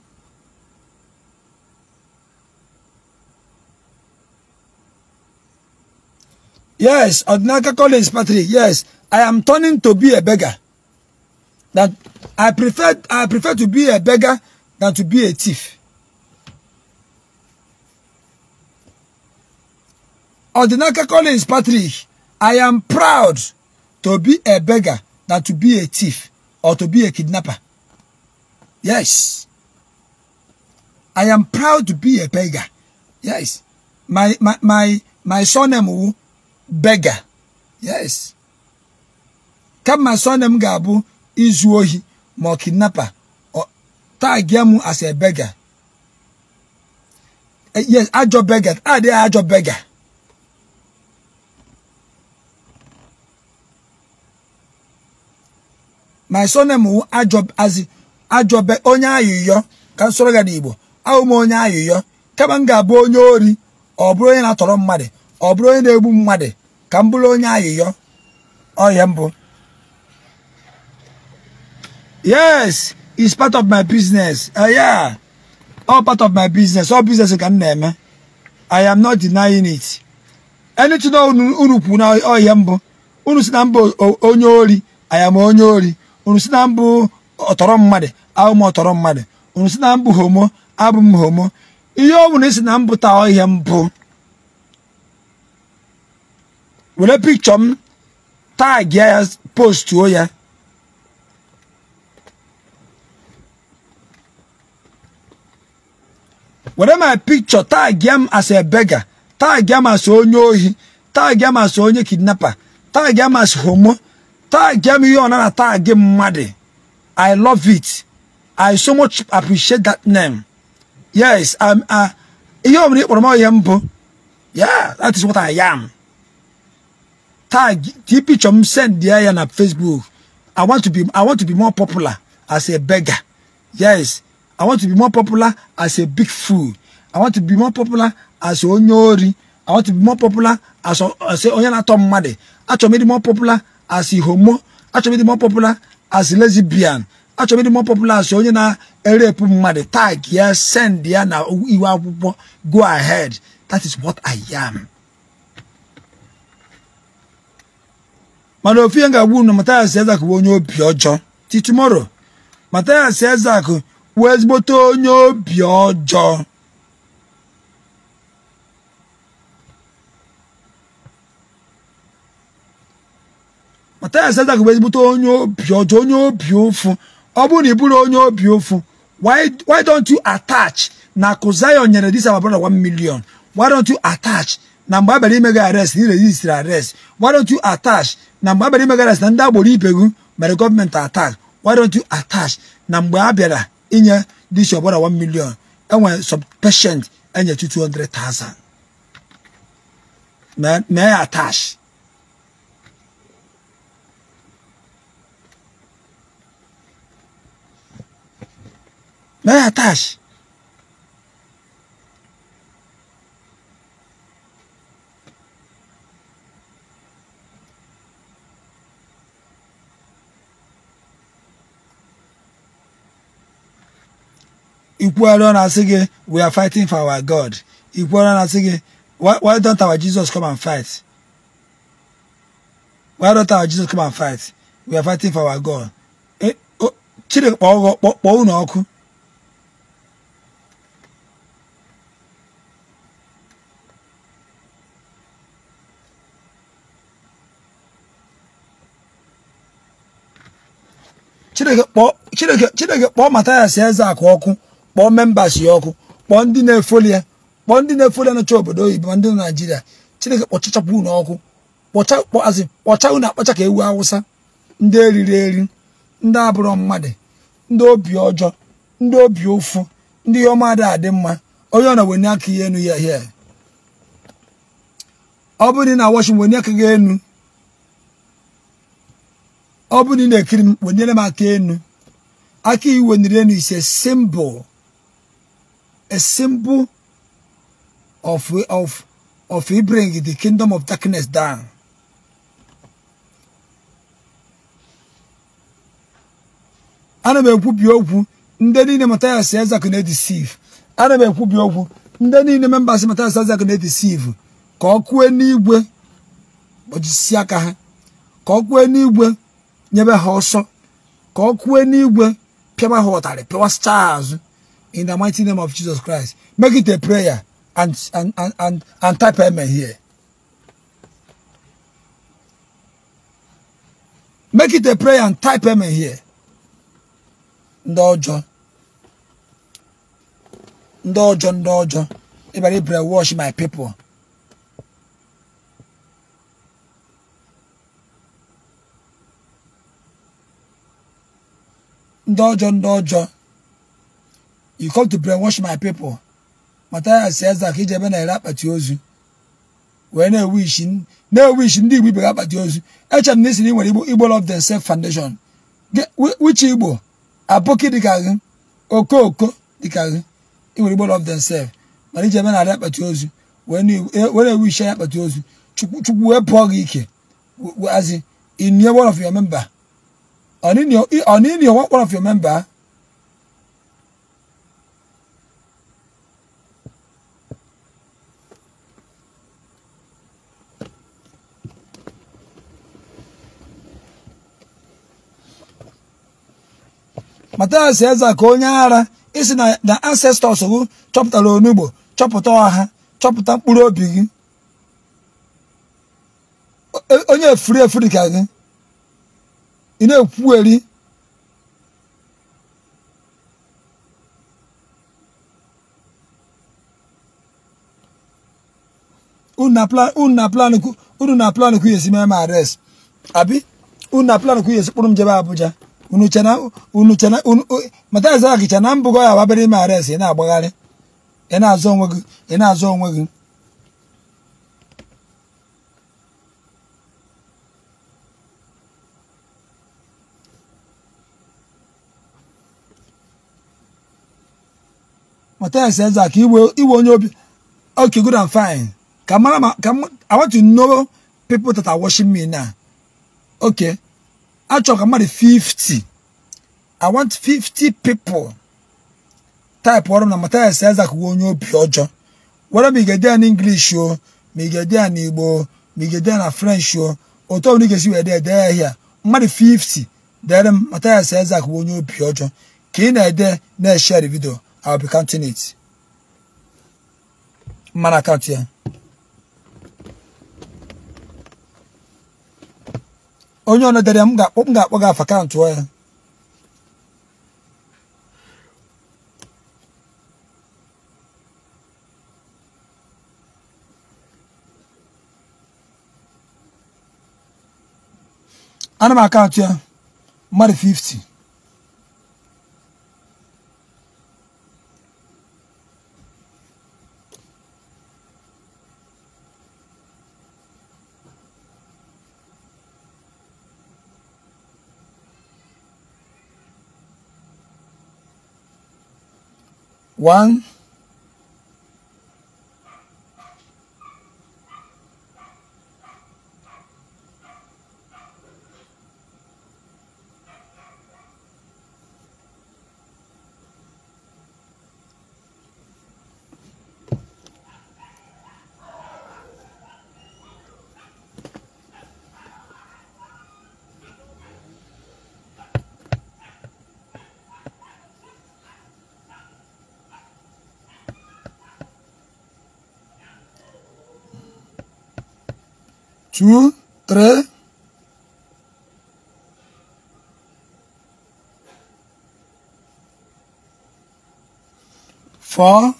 Yes, Odinaka College Patrick. Yes, I am turning to be a beggar. That I prefer I prefer to be a beggar than to be a thief. Odinaka Collins Patrick, I am proud to be a beggar than to be a thief or to be a kidnapper. Yes. I am proud to be a beggar. Yes. My my my my surname beggar yes kama surname ga-abụ izu ohi ma ọ kidnapper tagia m as a beggar eh, yes ajọ beggar adịghị ajọ beggar my surname wụ ajọ azị ajọbe onye ayụyọ ka soro ga n'Igbo ahụ onye ayụyọ kama m ga-abụ onye ori ọ bụrụ onye na-atọrọ mmadụ ọ bụrụ onye na-egbu mmadụ ka m bụrụ onye ayịyọ ọya mbụ yes is part of my business uh, yeah all part of my business all business ka m na-eme i am not denying it anything unu kwuru na ọya mbụ unu si na mbụ onye ori i am onye ori unu si na mbụ ọtọrọ mmadụ abụ ọtọrọ mmadụ unu si na mbụ homo abụ homo ihe ọ bụla isi na mbụ taa ọhịa mbụ were pikchọ m um, tagi ya postuo ya were my pikchọ uh, tagi m um, as a beggar tagi m um, as onye ohi tagi m as onye kidnapper tagi m as homo tagi m ihe ọ na tagi mmadụ i love it i so much appreciate that name yes i'm a ihe ọ bụla ị kpọrọ m ihe mbụ yeah that is what i am tag TP Chom send the iron on Facebook. I want to be I want to be more popular as a beggar. Yes, I want to be more popular as a big fool. I want to be more popular as a onyori. I want to be more popular as a say, a onyana tom made. I want to be more popular as a homo. I want to be more popular as a lesbian. I want to be more popular as a onyana erepu made. Tag yes, send the iron. Go ahead. That is what I am. mana ofu ihe ga na Mathias Ezeak bụ onye obi ọjọọ ti ezak wee ezigbote onye obi ọjọọ ezigbote onye obi ọjọọ onye obi ụfụ ọ bụrụ na ị bụrụ onye obi ụfụ why don't you attach na akụ nyere dis our brother million why don't you attach na mgbe ime gị arrest na irejistri arrest why don't you attach na mgbe abịara ime gị arrest na ndị agboro ipegu mere gọọmenti attack why don't you attach na mgbe a bịara inye dis ọbara 1 million enwere subpatient enye 200,000 mee ya attach mee ya attach ikwuara ọ na-asị we are fighting for our God E ọ na-asị why why don't our Jesus come and fight why don't our Jesus come and fight we are fighting for our God Chineke kpọọ unu ọkụ Chineke kpọọ Mathias Ezeaku ọkụ kpọọ membas ya ọkụ kpọọ ndị na-efoli ya kpọọ ndị na-efoli ya nọcha obodo oyibo ma ndị na naijiria chineke kpọchachapụ unu ọkụ kpọchakpọazi kpọcha unu akpacha ka ewu awụsa ndị eriri eri ndị abụrụ mmadụ ndị obi ọjọọ ndị obi ụfụ ndị ọma adị adị mma onye ọ na wenye aka ihe enu ya hie ọ bụrụ na washing wenye aka gị enu ọ bụrụ na ị na-ekiri m wenyere m aka enu aka niri enu ise simbụl a symbol of, of, of he bring the kingdom of darkness down. ana m nde okwu ndị niile Mathias Ezeaku na-edisive ana m ekwubi nde ndị niile members Mathias Ezeaku na deceive ka ọ kue n'igwe kpọchisi aka ha ka ọ kue n'igwe nyebe ha ọsọ ka ọ kue n'igwe pịaba ha ụtarị pịwasịcha azụ in the mighty name of Jesus Christ. Make it a prayer and, and, and, and, and type amen here. Make it a prayer and type amen here. Ndị ọjọọ. Ndị ọjọọ ndị ọjọọ. Ịbara ibere wash my people. Ndị ọjọọ ndị ọjọọ. You come to brainwash my people. Matthias says that he jebe na-ere akpati ozu. Wee na-ewishi ndị Igbo ibere akpati ozu. Echere m na isi na ị nwere Igbo Igbo Love Themselves Foundation. Which Igbo? Aboki dịka gị, Okooko dịka gị. Ị nwere Igbo Love Themselves. Mana ijebe na-ere akpati ozu. Eh, wee na-ewishi ya akpati ozu. Chukwu wee pụọ gị ike. As in, one of your member. On one of your member. Mathias Eze ka onye ara isi na ancestors gị chọpụtara onugbo chọpụta ọha chọpụta mkpụrụ obi gị e, onye efuri efuri ka gị ị na-ekwuweri unu na plan kwughesi mee m ares abi unu na plan kwughesi kpụrụ m jebe Abuja unu chana mataza gị chana mbụgo ya ababere ime ares ị na-agbagharị ị na-azọ onwe gị ị na-azọ onwe gị Matthias Eze ka iwe iwe onye obi okay good and fine ka mara ma ka I want to know people that are watching me now okay achọrọ ka mmadụ 50 i want 50 people type ọrụ na matias Isaac wee onye obi ọjọọ were ma ị ga-ede ya n'English o ma ga-ede n'Igbo ma ị ga-ede na French o otu ọbụla ị ga-esi wee dee ya ahịa mmadụ 50 deere m Mathias Isaac onye obi ọjọọ ka ị na-ede na-eshare video I'll be counting it mana akaụntụ ya onye ọnụ dere m ga-akpọ m ga-akpọ gị akaụntụ ya ana m akaụntụ ya mmadụ 50 one 3 4 Four.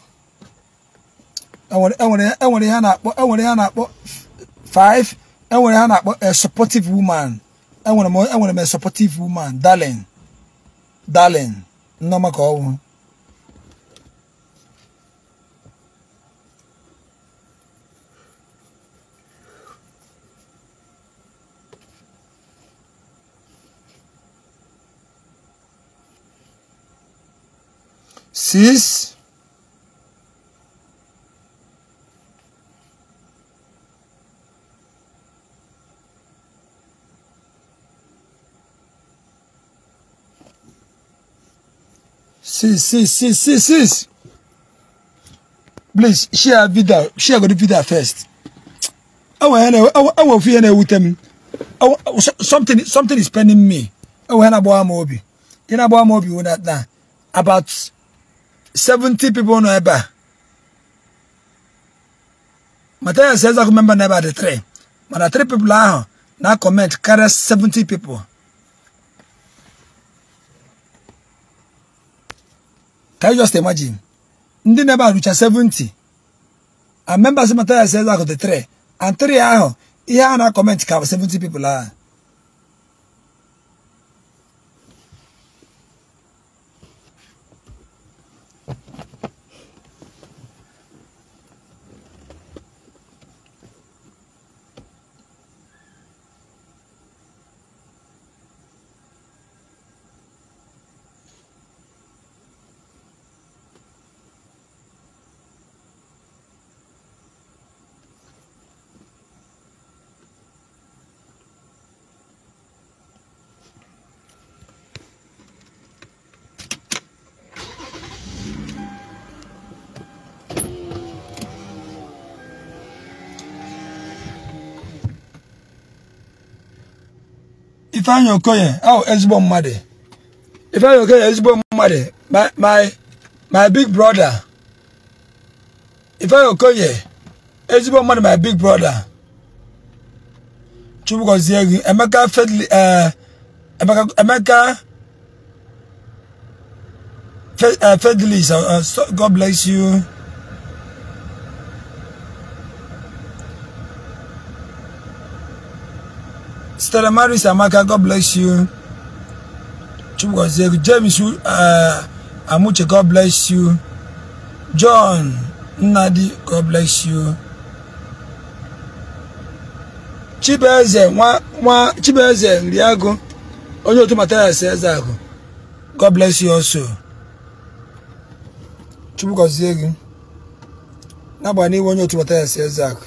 Enwere enwere ya na-akpọ enwere na-akpọ five. Enwere ya na-akpọ a supportive woman. Enwere m enwere m a supportive woman, darling. Darling. Nneoma ka ọwụ six six six six six six please share video share go the video first I I hena awo fi hena ewutem something something is pending me awo hena bo amobi know about amobi wona na about seventy people no ɛba matanya sɛ ɛza ko member na ɛba de three mana three people ahụ na comment karịa seventy people can you just imagine ndị na-ebe arụcha seventy. and members matanya sɛ ɛza ko de three and three ahụ ihe a na-akọment ka 70 people ahụ Ifeanyi Okoye oh ezigbo mmadụ Ifeanyi Okoye ezigbo mmadụ my my my big brother Ifeanyi Okoye ezigbo mmadụ my big brother Chukwu gọzie gị Emeka Fedli eh, Emeka Emeka eh, Fedlis eh, God bless you. Stella Maris Amaka, God bless you. Chukwugozie, James uh, Amuche, God bless you. John Nnadi, God bless you. Chibeze nwa nwa Chibeze Nriago, onye otu Matthias God bless you also. Chukwugozie gị. N'agbanyeghị onye otu Matthias Ezeaku.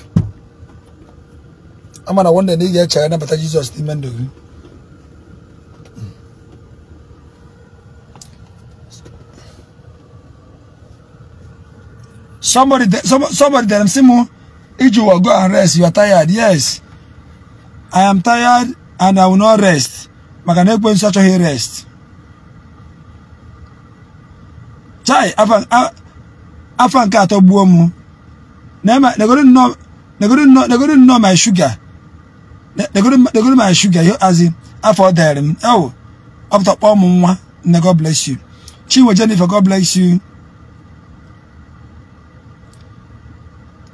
ama na wanda ne ya chaya na bata Jesus ni mendo gri somebody some, somebody them I'm saying Iju will go and rest you are tired yes I am tired and I will not rest maka na ekwe nsacho he rest chai afan afan ka to buo mu na ma na go no na go no na go no my sugar negoro my sugar azị afọ ọ dịrị m ewo ọpụta kpọọ m nwa nne god bless you chinwe jennifer god bless you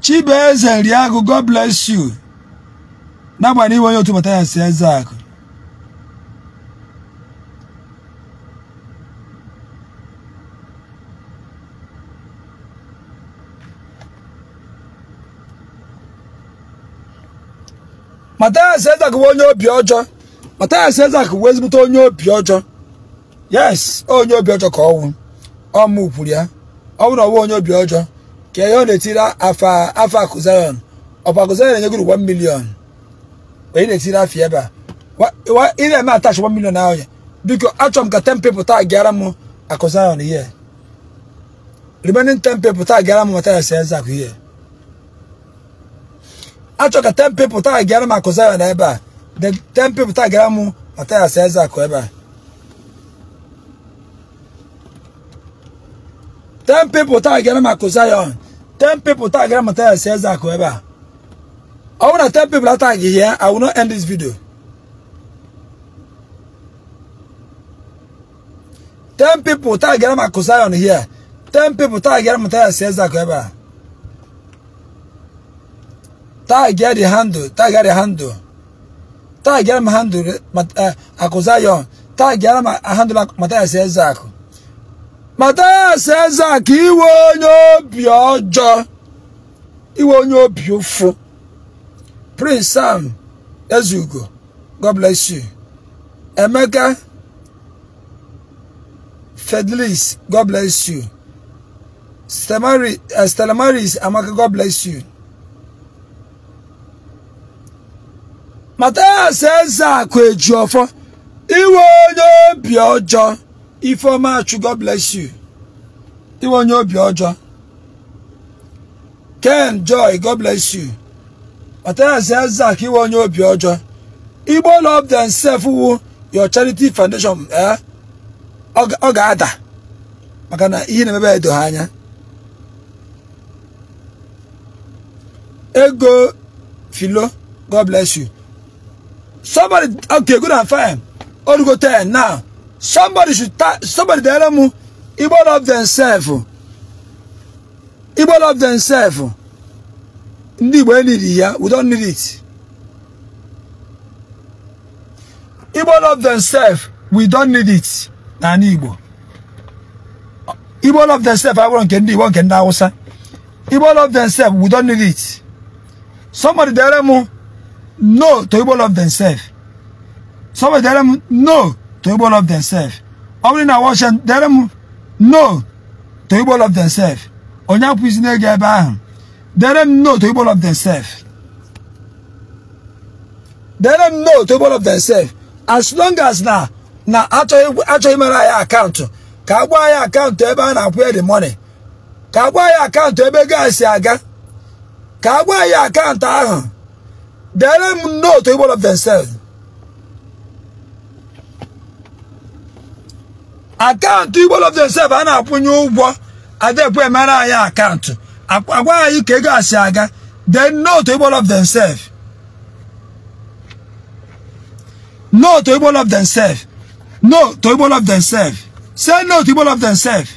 chibueze nriagụ god bless you n'agbanyeghị onye otu bata ya si eze akụ Mathias Ezeaku bụ onye obi ọjọ Mathias Ezeaku bụ ezigbote onye obi ọjọ yes onye obi ọjọ ka ọnwụ ọmụ kwuru ya ọ bụrụ ọwụ onye obi ọjọ ka ihe ọ na-etiri afọ afa akụzarion ọkwa akụzarion enye gụrụ 1 million onye na-etiri afọ ebe a ị na-eme atach 1 million ahụ ya biko achọrọ m ka 10 people taa gara m akụzarion ihe remaining 10 people taa gara m Mathias Ezeaku ihe achọ ka ten people, taa gara m akụza ya na ebe a ten people, taa gara m atayas eze akụ ebe a ten pepụl taa gara m akụza ya ten pepụl taa gara m atayas eze akụ ebe a ọ bụrụ people, ten pepụl ataghị ya I will not end this video ten people, taa gara m akụza ya here ten pepụl taa gara m atayas eze akụ ebe a tagịa the handle tagịa the handle tagịara m handle akụ Zion ya m handle Mathias ya Mathias Ezeaku eh, iwe onye obi ọjọọ iwe onye obi ụfụ Prince Sam Ezugo God bless you Emeka Fedlis God bless you Stelamaris eh, Amaka God bless you Mathias eji ọfọ iwe onye obi ọjọọ Ifeoma Achụ God bless you iwe onye obi ọjọọ Ken Joy God bless you Mathias Ezeaku iwe onye obi ọjọọ Igbo love sef wu your charity foundation eh? ọ ga-ada maka na ihe na-emebe edo ha anya ego filo God bless you Somebody, okay, good and fine. All go there now. Somebody should, somebody tell them, Igbo love themselves. Igbo love themselves. Ndị Igbo need it, We don't need it. Igbo love themselves. We don't need it. Na Igbo. Igbo love themselves. I want Kendi, want Kenda Hausa. Igbo love themselves. We don't need it. Somebody tell them, no to Igbo love themselves. them no to Igbo of themselves. Ọ bụrụ na Washington them no to Igbo themselves. na-ege ebe ahụ. them no to Igbo love themselves. them no to themselves. As long as na na achọghị mere anyị akaụntụ ka agwa anyị akaụntụ ebe a na-akwụ ya the money. Ka agwa anyị akaụntụ ebe ego a si Ka akaụntụ ahụ They don't know to one of themselves. akaụntụ igbo of themselves a na-akwụnye ụgwọ adekwe mara anyị akaụntụ agwa anyị ka ego asị They then note igbo of themselves no to igbo of themselves no to igbo of themselves say no to igbo of themselves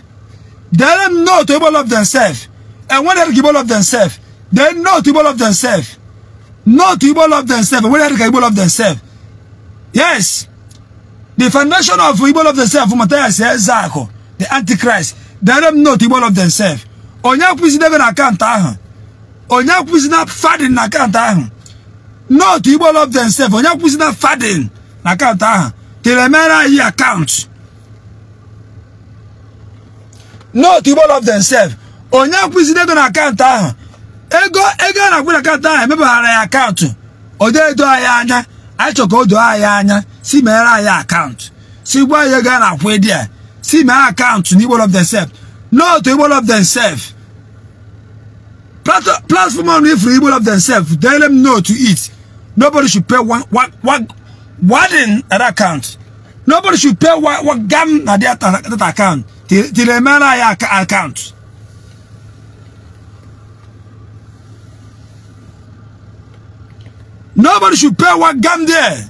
then know to igbo of themselves and when they give of themselves they know to igbo of themselves Not Igbo love themselves. Where did Igbo love themselves? Yes. The foundation of Igbo love themselves, Matthias Zako, the Antichrist, they no to Igbo love themselves. Onye akwụzi debe na ahụ. Onye akwụzi na fadin na akanta ahụ. Not Igbo love themselves. Onye akwụzi na fadin na akanta ahụ. Telemera yi account. Not Igbo love themselves. Onye akwụzi debe na akanta ahụ. ego ego a na-akwụnakọta ahụ emebara ya akaụntụ odeedo anyị anya anyị chọrọ ka o doo anyị anya si meere anyị akaụntụ si gwa anyị ego a na-akwụ ịdị a si mee akaụntụ na igbo of themself n'otu igbo of themself platform ọnụ ifuru igbo of themself deere m note to it nobody should pay one, one, one, one in that account nobody should pay one, one gam na that account till emeere anyị account. Nobody should pay what gum there.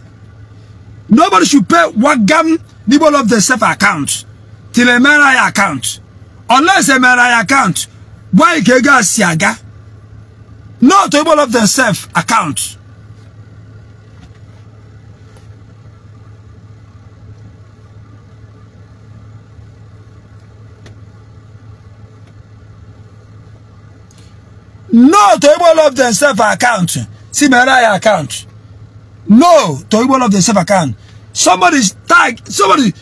Nobody should pay what gum. people of the self account till a MRI account. Unless a MRI account, why kega siaga? Not people of the self account. Not able of themselves account. See my CBRI account. No to evil of themselves self account. Somebody tag, somebody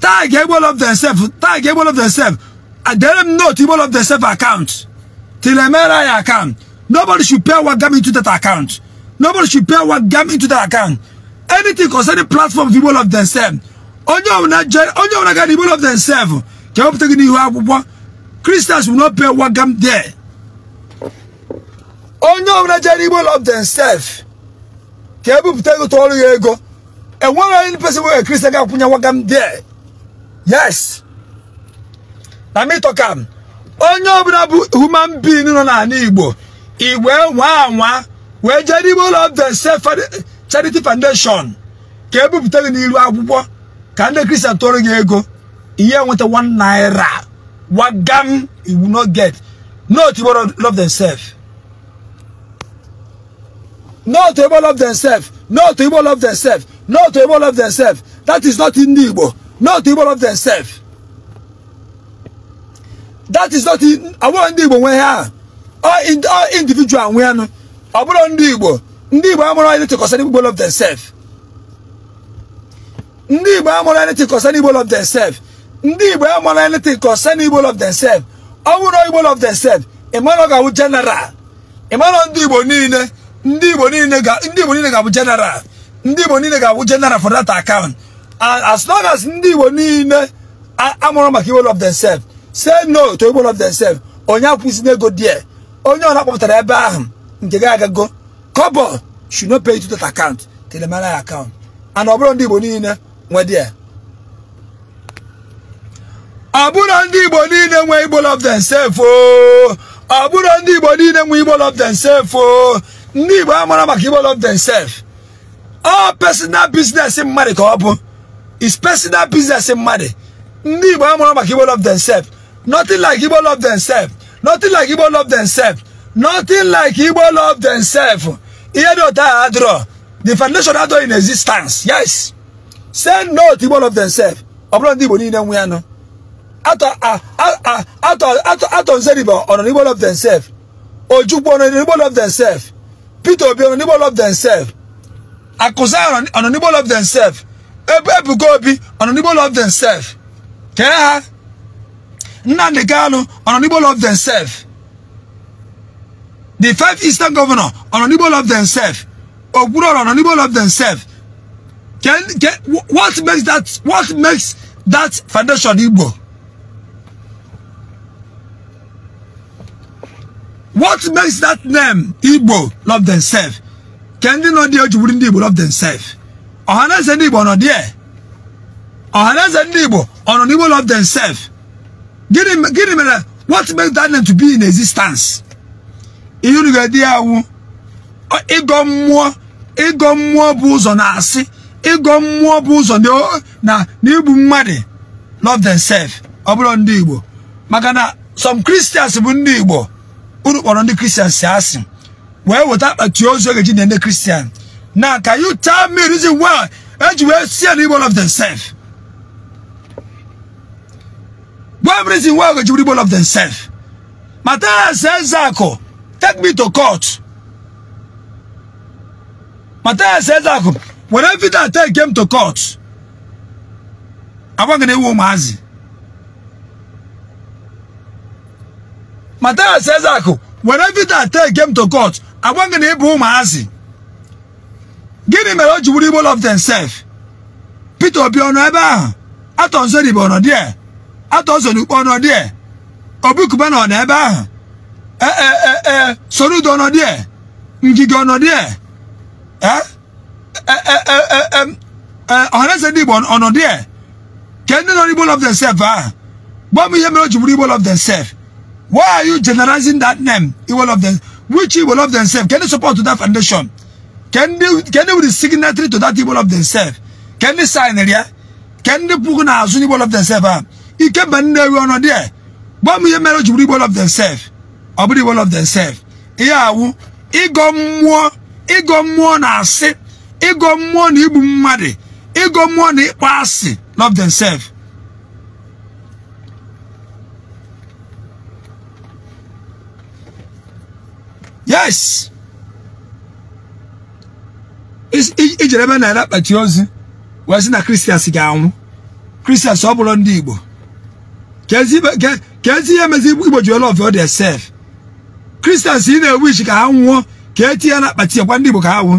tag evil of themselves, tag evil of themselves. I tell them no to Igbo of themselves self account. To my MRI account. Nobody should pay what gum into that account. Nobody should pay what gum into that account. Anything concerning platform of Igbo of themselves. Onye ọbụla ga Igbo of themselves. Ka ọ pụta gị n'ihu Christians will not pay what gum there. onye ọbụla jere igbo love sef ka ebupụta ego tụọrụ ya ego enwere onye pesi nwere kristian ga akwụnye nwaga m there yes na mitokam onye ọbụla bụ human being nọ n'ala igbo igwe nwa anwa wee jere igbo love sef charity foundation ka ebupụta gị n'iru akwụkwọ ka ndị kristian tụọrụ gị ego ihe nweta one naira wagam iwu no get not igbo love themselves No to evil of themselves. No to evil of themselves. No to evil of themselves. That is not in Igbo. No to evil of themselves. That is not in our Igbo we are. All, all individual we are. Aburo ndị Igbo. Ndị Igbo amụrụ anything concerning evil of themselves. Ndị Igbo amụrụ anything concerning evil of themselves. Ndị Igbo amụrụ anything concerning evil of themselves. Ọ bụrụ evil of themselves. Ị mara ọ ga-awụ general. Ị mara ndị Igbo niile. ndị Igbo niile ga-abụ jenara ndị Igbo niile ga-abụ general for that account as long as ndị Igbo niile amụrụ maka iwel of themselves say no to iwel of themselves onye akwụsịna ego die onye ọ kpọpụtara ebe ahụ nke ga-agago kobo should not pay to that account account and ọ bụrụ ndị Igbo niile nwe die ọ bụrụ ndị Igbo niile igbol of themselves oh, ọ bụrụ ndị Igbo niile igbol of themselves oh, ndị Igbo amara maka Igbo love themselves all personal business mmadụ ka ọ bụ is personal business mmadụ ndị Igbo amara maka Igbo love themselves nothing like Igbo love themselves nothing like Igbo love themselves nothing like Igbo love themselves ihe dị otu ahụ adịrọ the foundation adọ in existence yes send no to Igbo love themselves ọ bụrụ ndị Igbo niile nwe ya nọ atọ nzeribe ọ nọ n'Igbo love themselves ojukwu ọ nọ n'Igbo love themselves Peter Obi be unable themselves. Akosa unable of themselves. Ebebu go be unable of themselves. Keha. Nnamdi Kanu unable of themselves. The five eastern governor unable of themselves. Ogburo unable of themselves. Can, can, what makes that what makes that foundation Igbo? what makes that name igbo love themselves ka nọ dị o ndị igbo love themselves ọhaneze ndị igbo ndị igbo ọ nọ n'igbo love themselves gịnị gịnị mere what makes that name to be in existence ihe unu ga bụ na bụ n'igbu love themselves igbo unu kpọrọ ndị kristian si asị wee weta akpati ozu oge ji na ndị na can you tell me reason why eji wee sie na igbo of themselves one reason why oge ji were of themselves Matthias Ezeaku take me to court Matthias Ezeaku when every day I take him to court I want to know who says Ezeaku were Peter take game to court agwa gị na ịbụ ụmụazị gịnị mere o ji wuru Igbo of themselves Peter Obi ọnụ ebe ahụ atọ nso n'Igbo ọnọ die atọ nso n'Ukpe ọnọ Obi ọ nọ ebe ahụ ee eh eh eh Ngige ọnọ die ọhaneze e, e, e, ndị Igbo ọnọ die ka ndị nọ n'Igbo love themselves ahụ gwa m ihe mere o ji wuru Igbo love themselves Why are you generalizing that name? Evil of them, which evil of themselves? Can you support to that foundation? Can they can they be the signatory to that evil of themselves? Can they sign it? Yeah? Can they put on as evil of themselves? You ah? can ban the one there. But me marriage will evil of themselves. Or be evil of themselves. Yeah, ịgọ mmụọ ịgọ mmụọ na asị ịgọ mmụọ na igbu mmadụ ịgọ mmụọ na ịkpọ asị love themselves yes ijere ebe naira akpati ozu wee sị na kristians ga-anwụ kristians ọ bụrụ ndị igbo ka ezi ihe mezi igbo ji olof ọ dị sef kristians ị na-ewu ichi ka ha nwụọ ka etinye ya na akpati gwa ndị igbo ka ha nwụọ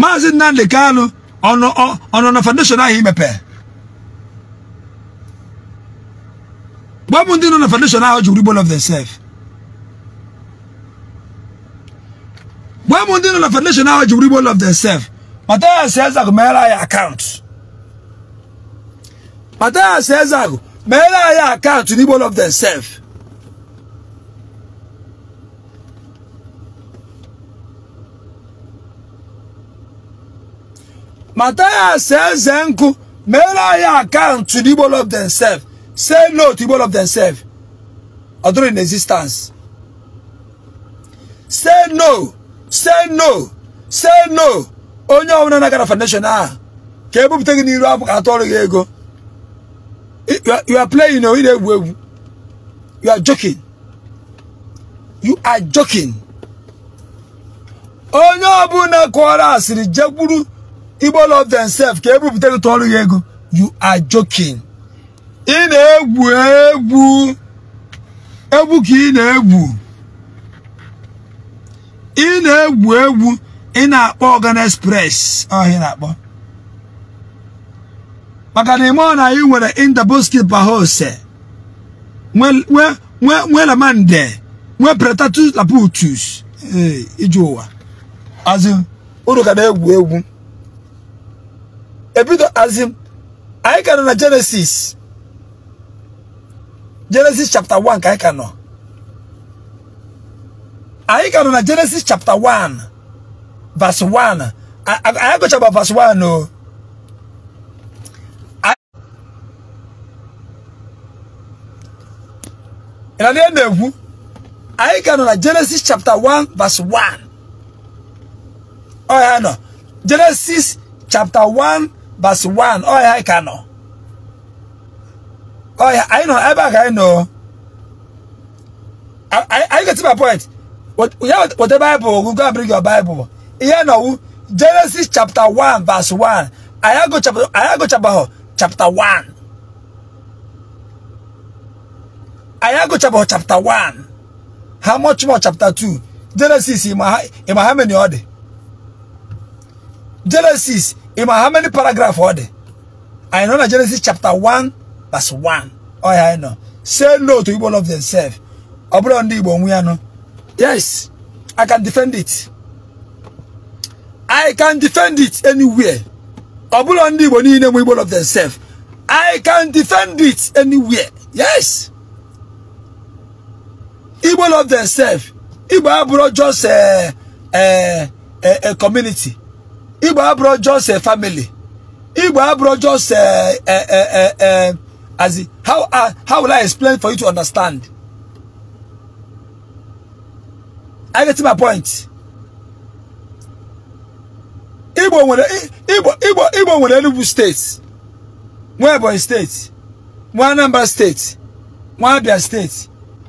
maazị nnamdị kanụ ọnụ na foundation ahụ imepee Why Wọ́n dín náà foundation náà ọjọ́ rebel of themselves. Why Wọ́n dín náà foundation náà ọjọ́ rebel of themselves. Pàtà àṣẹ́zà kò mẹ́rà ayé account. Pàtà àṣẹ́zà kò mẹ́rà ayé account rebel of themselves. Mataya says Zenku, Mera ya account to the of themselves. Say no to one of themselves, although in existence. Say no, say no, say no. Onye ọbụla na-agara foundation ahụ ka ebupụta gị n'iru abụ ka atọrọ gị ego. You are playing na ị na-egwu egwu. You are joking. You are joking. Onye ọbụla kọrọ asịrị jekwuru Igbo love themselves ka ebupụta gị tọrọ gị ego. You are joking. ị na-egwu egwu egwu ka ị na-egwu ị na-egwu egwu ị na-akpọ organic press ọhịa na-akpọ maka na ime ọ na anyị nwere indaboski bahose nwe lamande nwe pretatus laputus ije ụwa azụm uru ka na-egwu egwu ebido azụm anyị gara na Genesis Genesis chapter 1 ka ika no ayika no na Genesis chapter 1 verse 1 ayako chapter verse 1 no ina ne na ewu ayika no na Genesis chapter 1 verse 1 oh ya no Genesis chapter 1 verse 1 oh ya ika Oh yeah, I know. I back. I know. I I, I get to my point. What yeah, what the Bible? You go and bring your Bible. Yeah, now, Genesis chapter one verse one. I go chapter. I go chapter chapter one. I go chapter chapter one. How much more chapter two? Genesis in my in my how many order? Genesis in my how many paragraph order? I know Genesis chapter one verse 1 ọ I know. say no to people of themselves ọ bụrụ ndị Igbo nwe yes I can defend it I can defend it anywhere ọ bụrụ ndị Igbo niile people of themselves I can defend it anywhere yes Igbo of themselves Iba abụrụ just a, a, a, a community Iba abụrụ just a eh, family Iba abụrụ just a, a, a, a, a As in, how, uh, how will I explain for you to understand? I get to my point. Igbo nwere Igbo Igbo Igbo nwere Enugu steeti, nwe Ebonyi steeti, nwe Anambra steeti, nwe Abia steeti,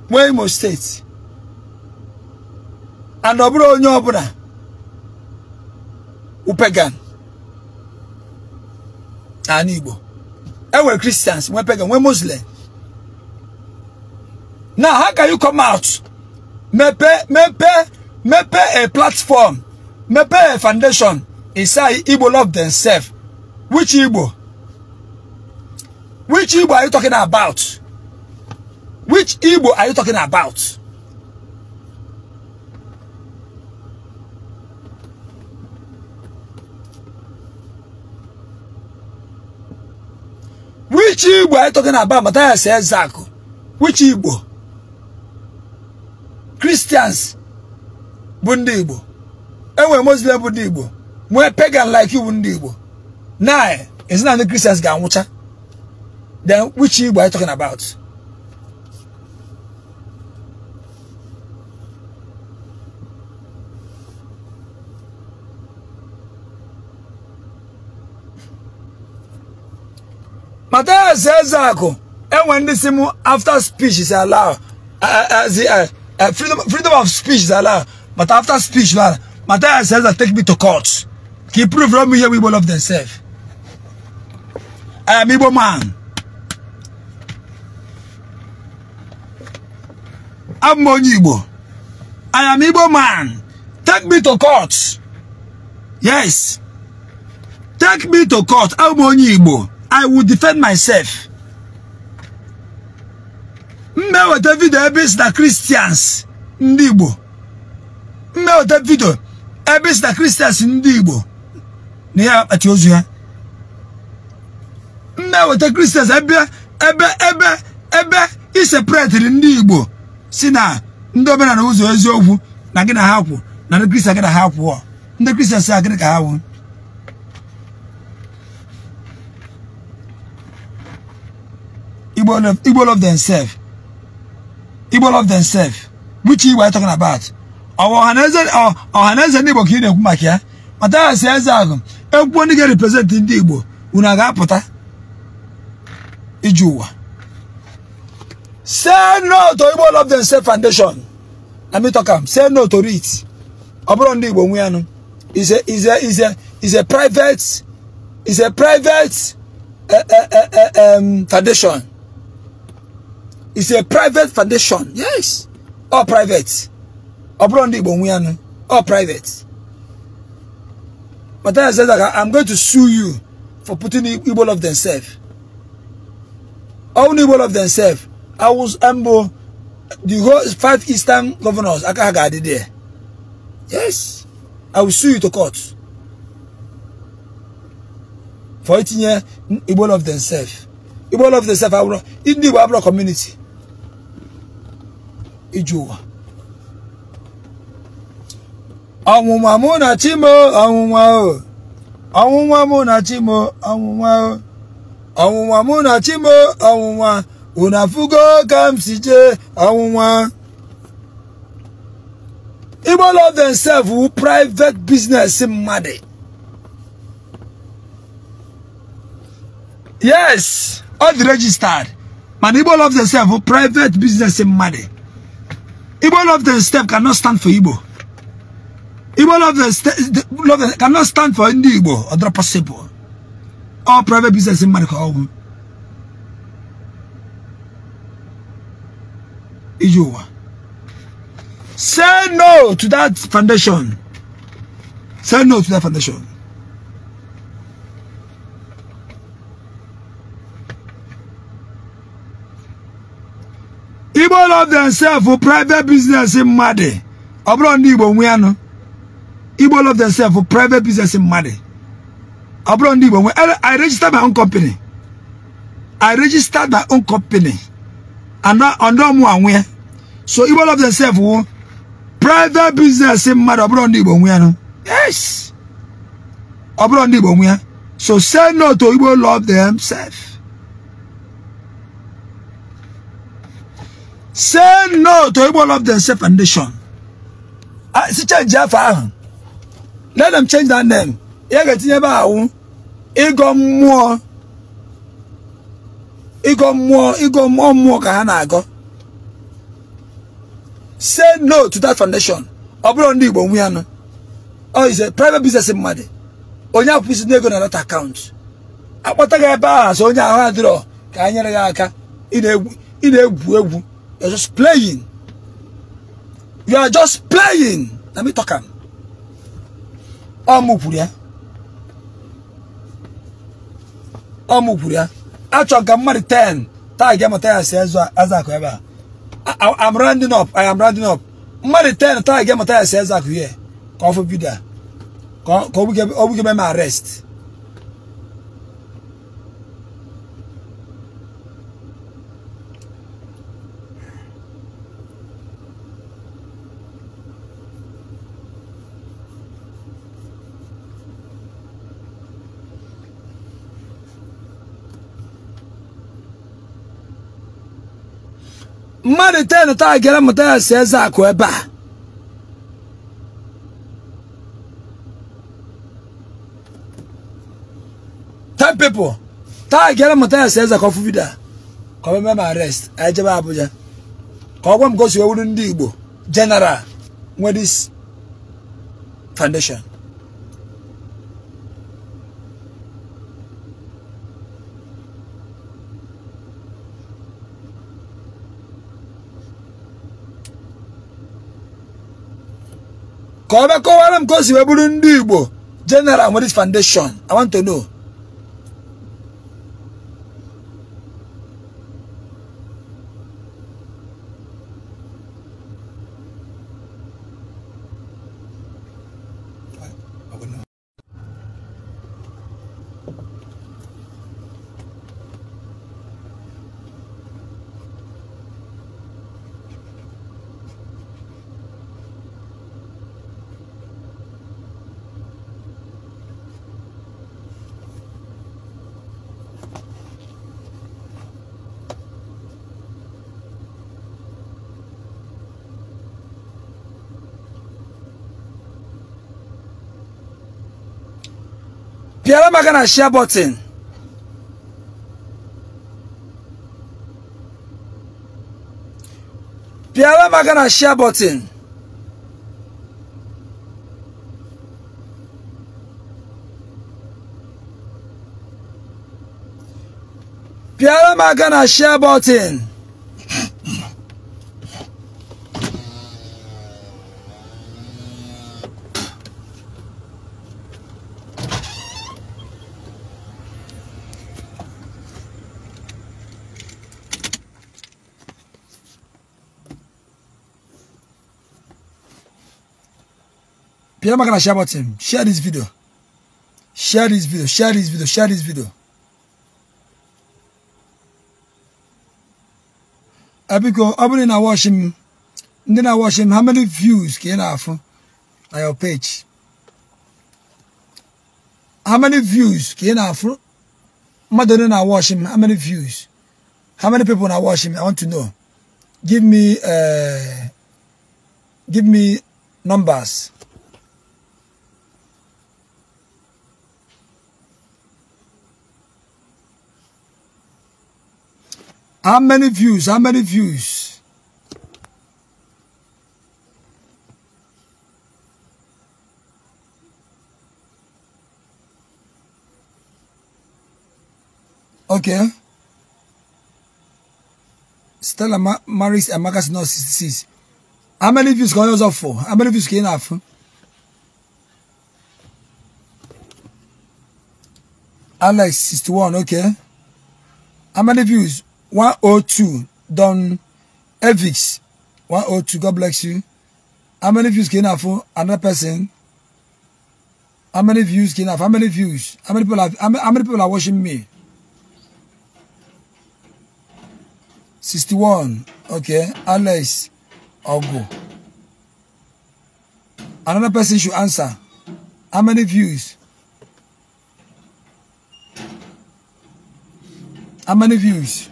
nwe Imo steeti. And ọ bụrụ onye ọbụla upegan Ani Igbo ɛwɔ christians wɔn pagan we muslim now how can you come out mepɛ mepɛ mepɛ a platform mepɛ a foundation inside igbo love themselves which igbo which igbo are you talking about which igbo are you talking about. which Igbo are you talking about? Matthias Ezako. Which Igbo? Christians bụ ndị Igbo. Enwere Muslim bụ ndị Igbo. Nwee pagan like you bụ ndị Igbo. Now, ezinụlọ not the Christians ga-anwụcha. Then which Igbo are you talking about? Mataya says Zako, and eh, when this after speech is allowed, uh, uh, the, freedom, of speech is allowed, but after speech, well, Mataya says that take me to court. He proved from here We people of themselves. Eh, I am Igbo man. I'm Igbo. I am Igbo man. Take me to court. Yes. Take me to court. I'm Igbo. I will defend myself. mmeweta vidio ebe isi na Christians ndị Igbo mmeweta vidio ebe isi na Christians ndị Igbo na ya akpati ozu ya mmeweta Christians ebe ebe ebe ebe isepretiri ndị Igbo si na ndị omenala ụzọ eziokwu na gị na ha kwụ na ndi Christian gị na ha kwụ ndị Christians a gịnị ka ha kwụ Igbo love, Igbo love themselves. Igbo love themselves. Which Igbo are talking about? Our Ọhaneze ndị our ka ị na-ekwu maka ya. Mata ya si eze agụ. Ekwuo ndị ga-represent ndị Igbo. Unu a ga-apụta iji Say no to Igbo love themselves foundation. Let me talk am. Say no to it. Ọ bụrụ ndị Igbo nwe Is a is a is a is a private is a private uh, uh, uh, um, foundation. It's a private foundation. Yes. All private. Obron di bonwianu. All private. But then I said that I'm going to sue you for putting evil of themselves. All evil of themselves. I was humble. The whole five eastern governors. Akahaga did there. Yes. I will sue you to court. For eating evil of themselves. Evil of themselves. I will not. In the Igbo community ijowa ọnwụnwa mụ na chimo ọnwụnwa o ọnwụnwa mụ na chimo ọnwụnwa o ọnwụnwa mụ na chimo ọnwụnwa unu afụgo ka m si jee ọnwụnwa igbo love themselves wu private business mmadụ yes ọ dị registered mana igbo love themselves wu private business mmadụ Igbo love the step cannot stand for Igbo. Igbo love the, the love the, cannot stand for Ndi Igbo. Other possible. All private business in America. All. Say no to that foundation. Say no to that foundation. all of themselves for private business in Madi. Obro ndi Igbo nwe ano. Igbo all themselves for private business in Madi. Obro ndi Igbo nwe. I registered my own company. I registered my own company. And now under mu anwe. So Igbo love themselves for private business in Madi. Obro ndi Igbo nwe ano. Yes. Obro ndi Igbo nwe. So say no to Igbo love themselves. say no to of Love Themselves Foundation. I ah, see change Jaffa. Let them change that name. ya get in about Igbo Mmụọ. Igbo Mmụọ, Igbo Mmụọ ka ha na-agọ. Say no to that foundation. Ọ bụrụ ndị Igbo nwe anụ. Ọ is a private business mmadụ. Onye akwụsị n'ego na that account. Akpọta gị ebe ahụ so onye ahụ adịrọ ka ha nyere ya aka ị na-egwu egwu You're just playing. You are just playing. Let me talk. Omupuria. Omupuria. Actually, I'm married 10. I'm rounding up. I am rounding up. Married 10. I'm married 10. I'm here. Come for video. Come, come, come, come, come, arrest. mmadụ ten taa gara mụta ya si eze akụ ebe a ten pipo taa gara mụta ya si eze ka ọ ka ọ mee arrest anyị e jebe Abuja ka ọ gwa m gosi ewuru ndị Igbo general nwedis foundation ka ọ bịa kọwara m ka o si wee bụrụ ndị Igbo general nwere foundation I want to know. am I gonna share button? Piara am I gonna share button? Piara am I gonna share button? Please make a share button. Share this video. Share this video. Share this video. Share this video. Abiko, abone na watch him. Then I watch him. How many views can I have on your page? How many views can I have? Mother, I watch him. How many views? How many people are watching? I want to know. Give me, uh, give me numbers. How many views? How many views? Okay. Stella Ma Maris and Marcus no, 66. How many views going you have for? How many views can you have? Alex 61, okay. How many views? 102. Don Evix. 102. God bless you. How many views can I have for another person? How many views can I have? How many views? How many people are how many, people are watching me? 61. Okay. Alex Ogo. Another person should answer. How many views? How many views?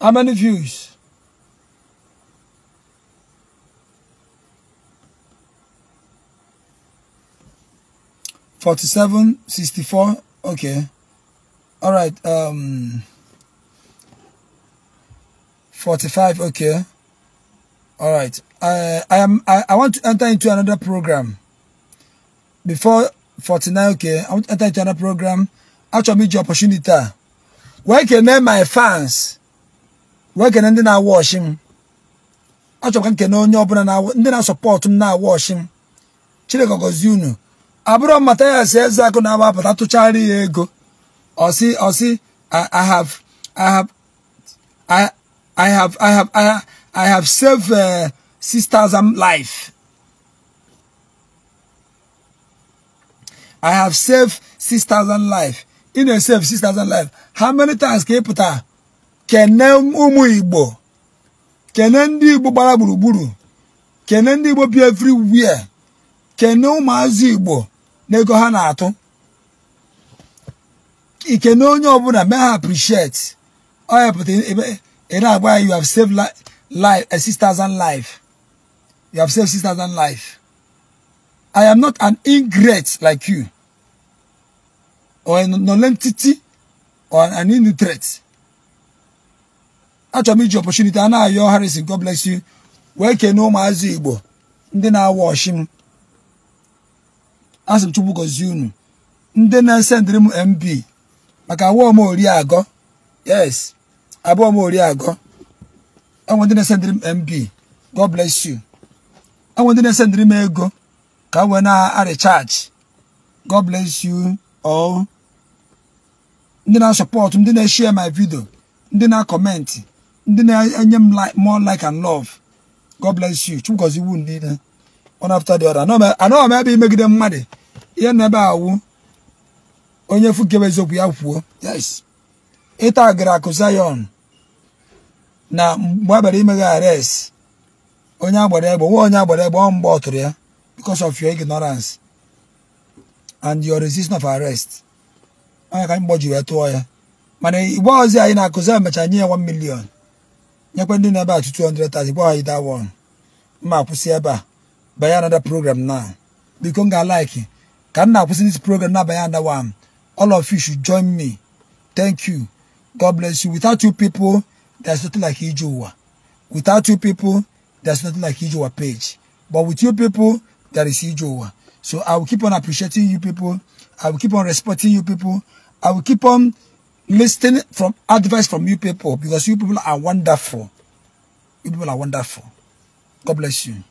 How many views? Forty-seven, sixty-four. Okay. All right. Um. Forty-five. Okay. All right. I I am I, I want to enter into another program. Before forty-nine. Okay. I want to enter into another program. Actually, me your opportunity. Where can I my fans? wee kene ndị na-awa ọchị m achọrọ ka nkene onye ọbụla ndị na-asọpọtụ m na-awa ọchị m Chineke gọzie unu abụrụ mmata ya si eze akụ na-agbapụta tụchara ya ego ọsị ọsị I have I have I have I have I have saved uh, six thousand um, life I have saved six thousand um, life ị na-esave six thousand um, life how many times ka ị pụtara kene ụmụ igbo kene ndị igbo gbara gburugburu kene ndị igbo bi everywhere kene ụmụazị igbo n'ego ha na-atụ ikene onye ọbụla mee ha appreciate ọ hapụta ị ya you have saved life a 6000 life you have saved sisters and life I am not an ingrate like you or a nonentity or an innutrate. achọrọ m iji opportunity a na-ayọ Harrison God bless you wee kene ụmụazị Igbo ndị na-awa ọchịm asị m Chukwu gọzie unu ndị na-esendịrị m mb maka abụọ m ori agọ yes abụọ m ori agọ enwe ndị na-esendịrị m mb God bless you enwe ndị na-esendịrị m ego ka m wee na-arịchaachị God bless you all ndị na-asọpọtụ ndị na-eshie ma vidio ndị na-akọmentị ndị na-enye m more like and love God bless you chukwu iwu niile one after the other anọghị m e, ebe imegide mmadụ ihe na ebe awụ onye fukebe eziokwu ya kwuo yes ịta agara akụ Zion na mgbe a bịara imeghe arrest onye agbara egbe nwa onye agbara egbe ọ mgbe ọtụrụ ya because of your ignorance and your resistance of arrest onye ka anyị gbọjiri ya tụọ ya mana igbe ọzọ anyị na-akụzi ya mecha nye ya 1 million nyekwa ndị na ebe a 230 gwa anyị that one mma akwụsị ebe a banye another program now biko m ga-alike ka m na-akwụsị this program na-abanye another one all of you should join me thank you god bless you without you people there's nothing like ije ụwa without you people there's nothing like ije ụwa page but with you people there is ije ụwa so i will keep on appreciating you people i will keep on respecting you people i will keep on listening from advice from you people because you people are wonderful. You people are wonderful. God bless you.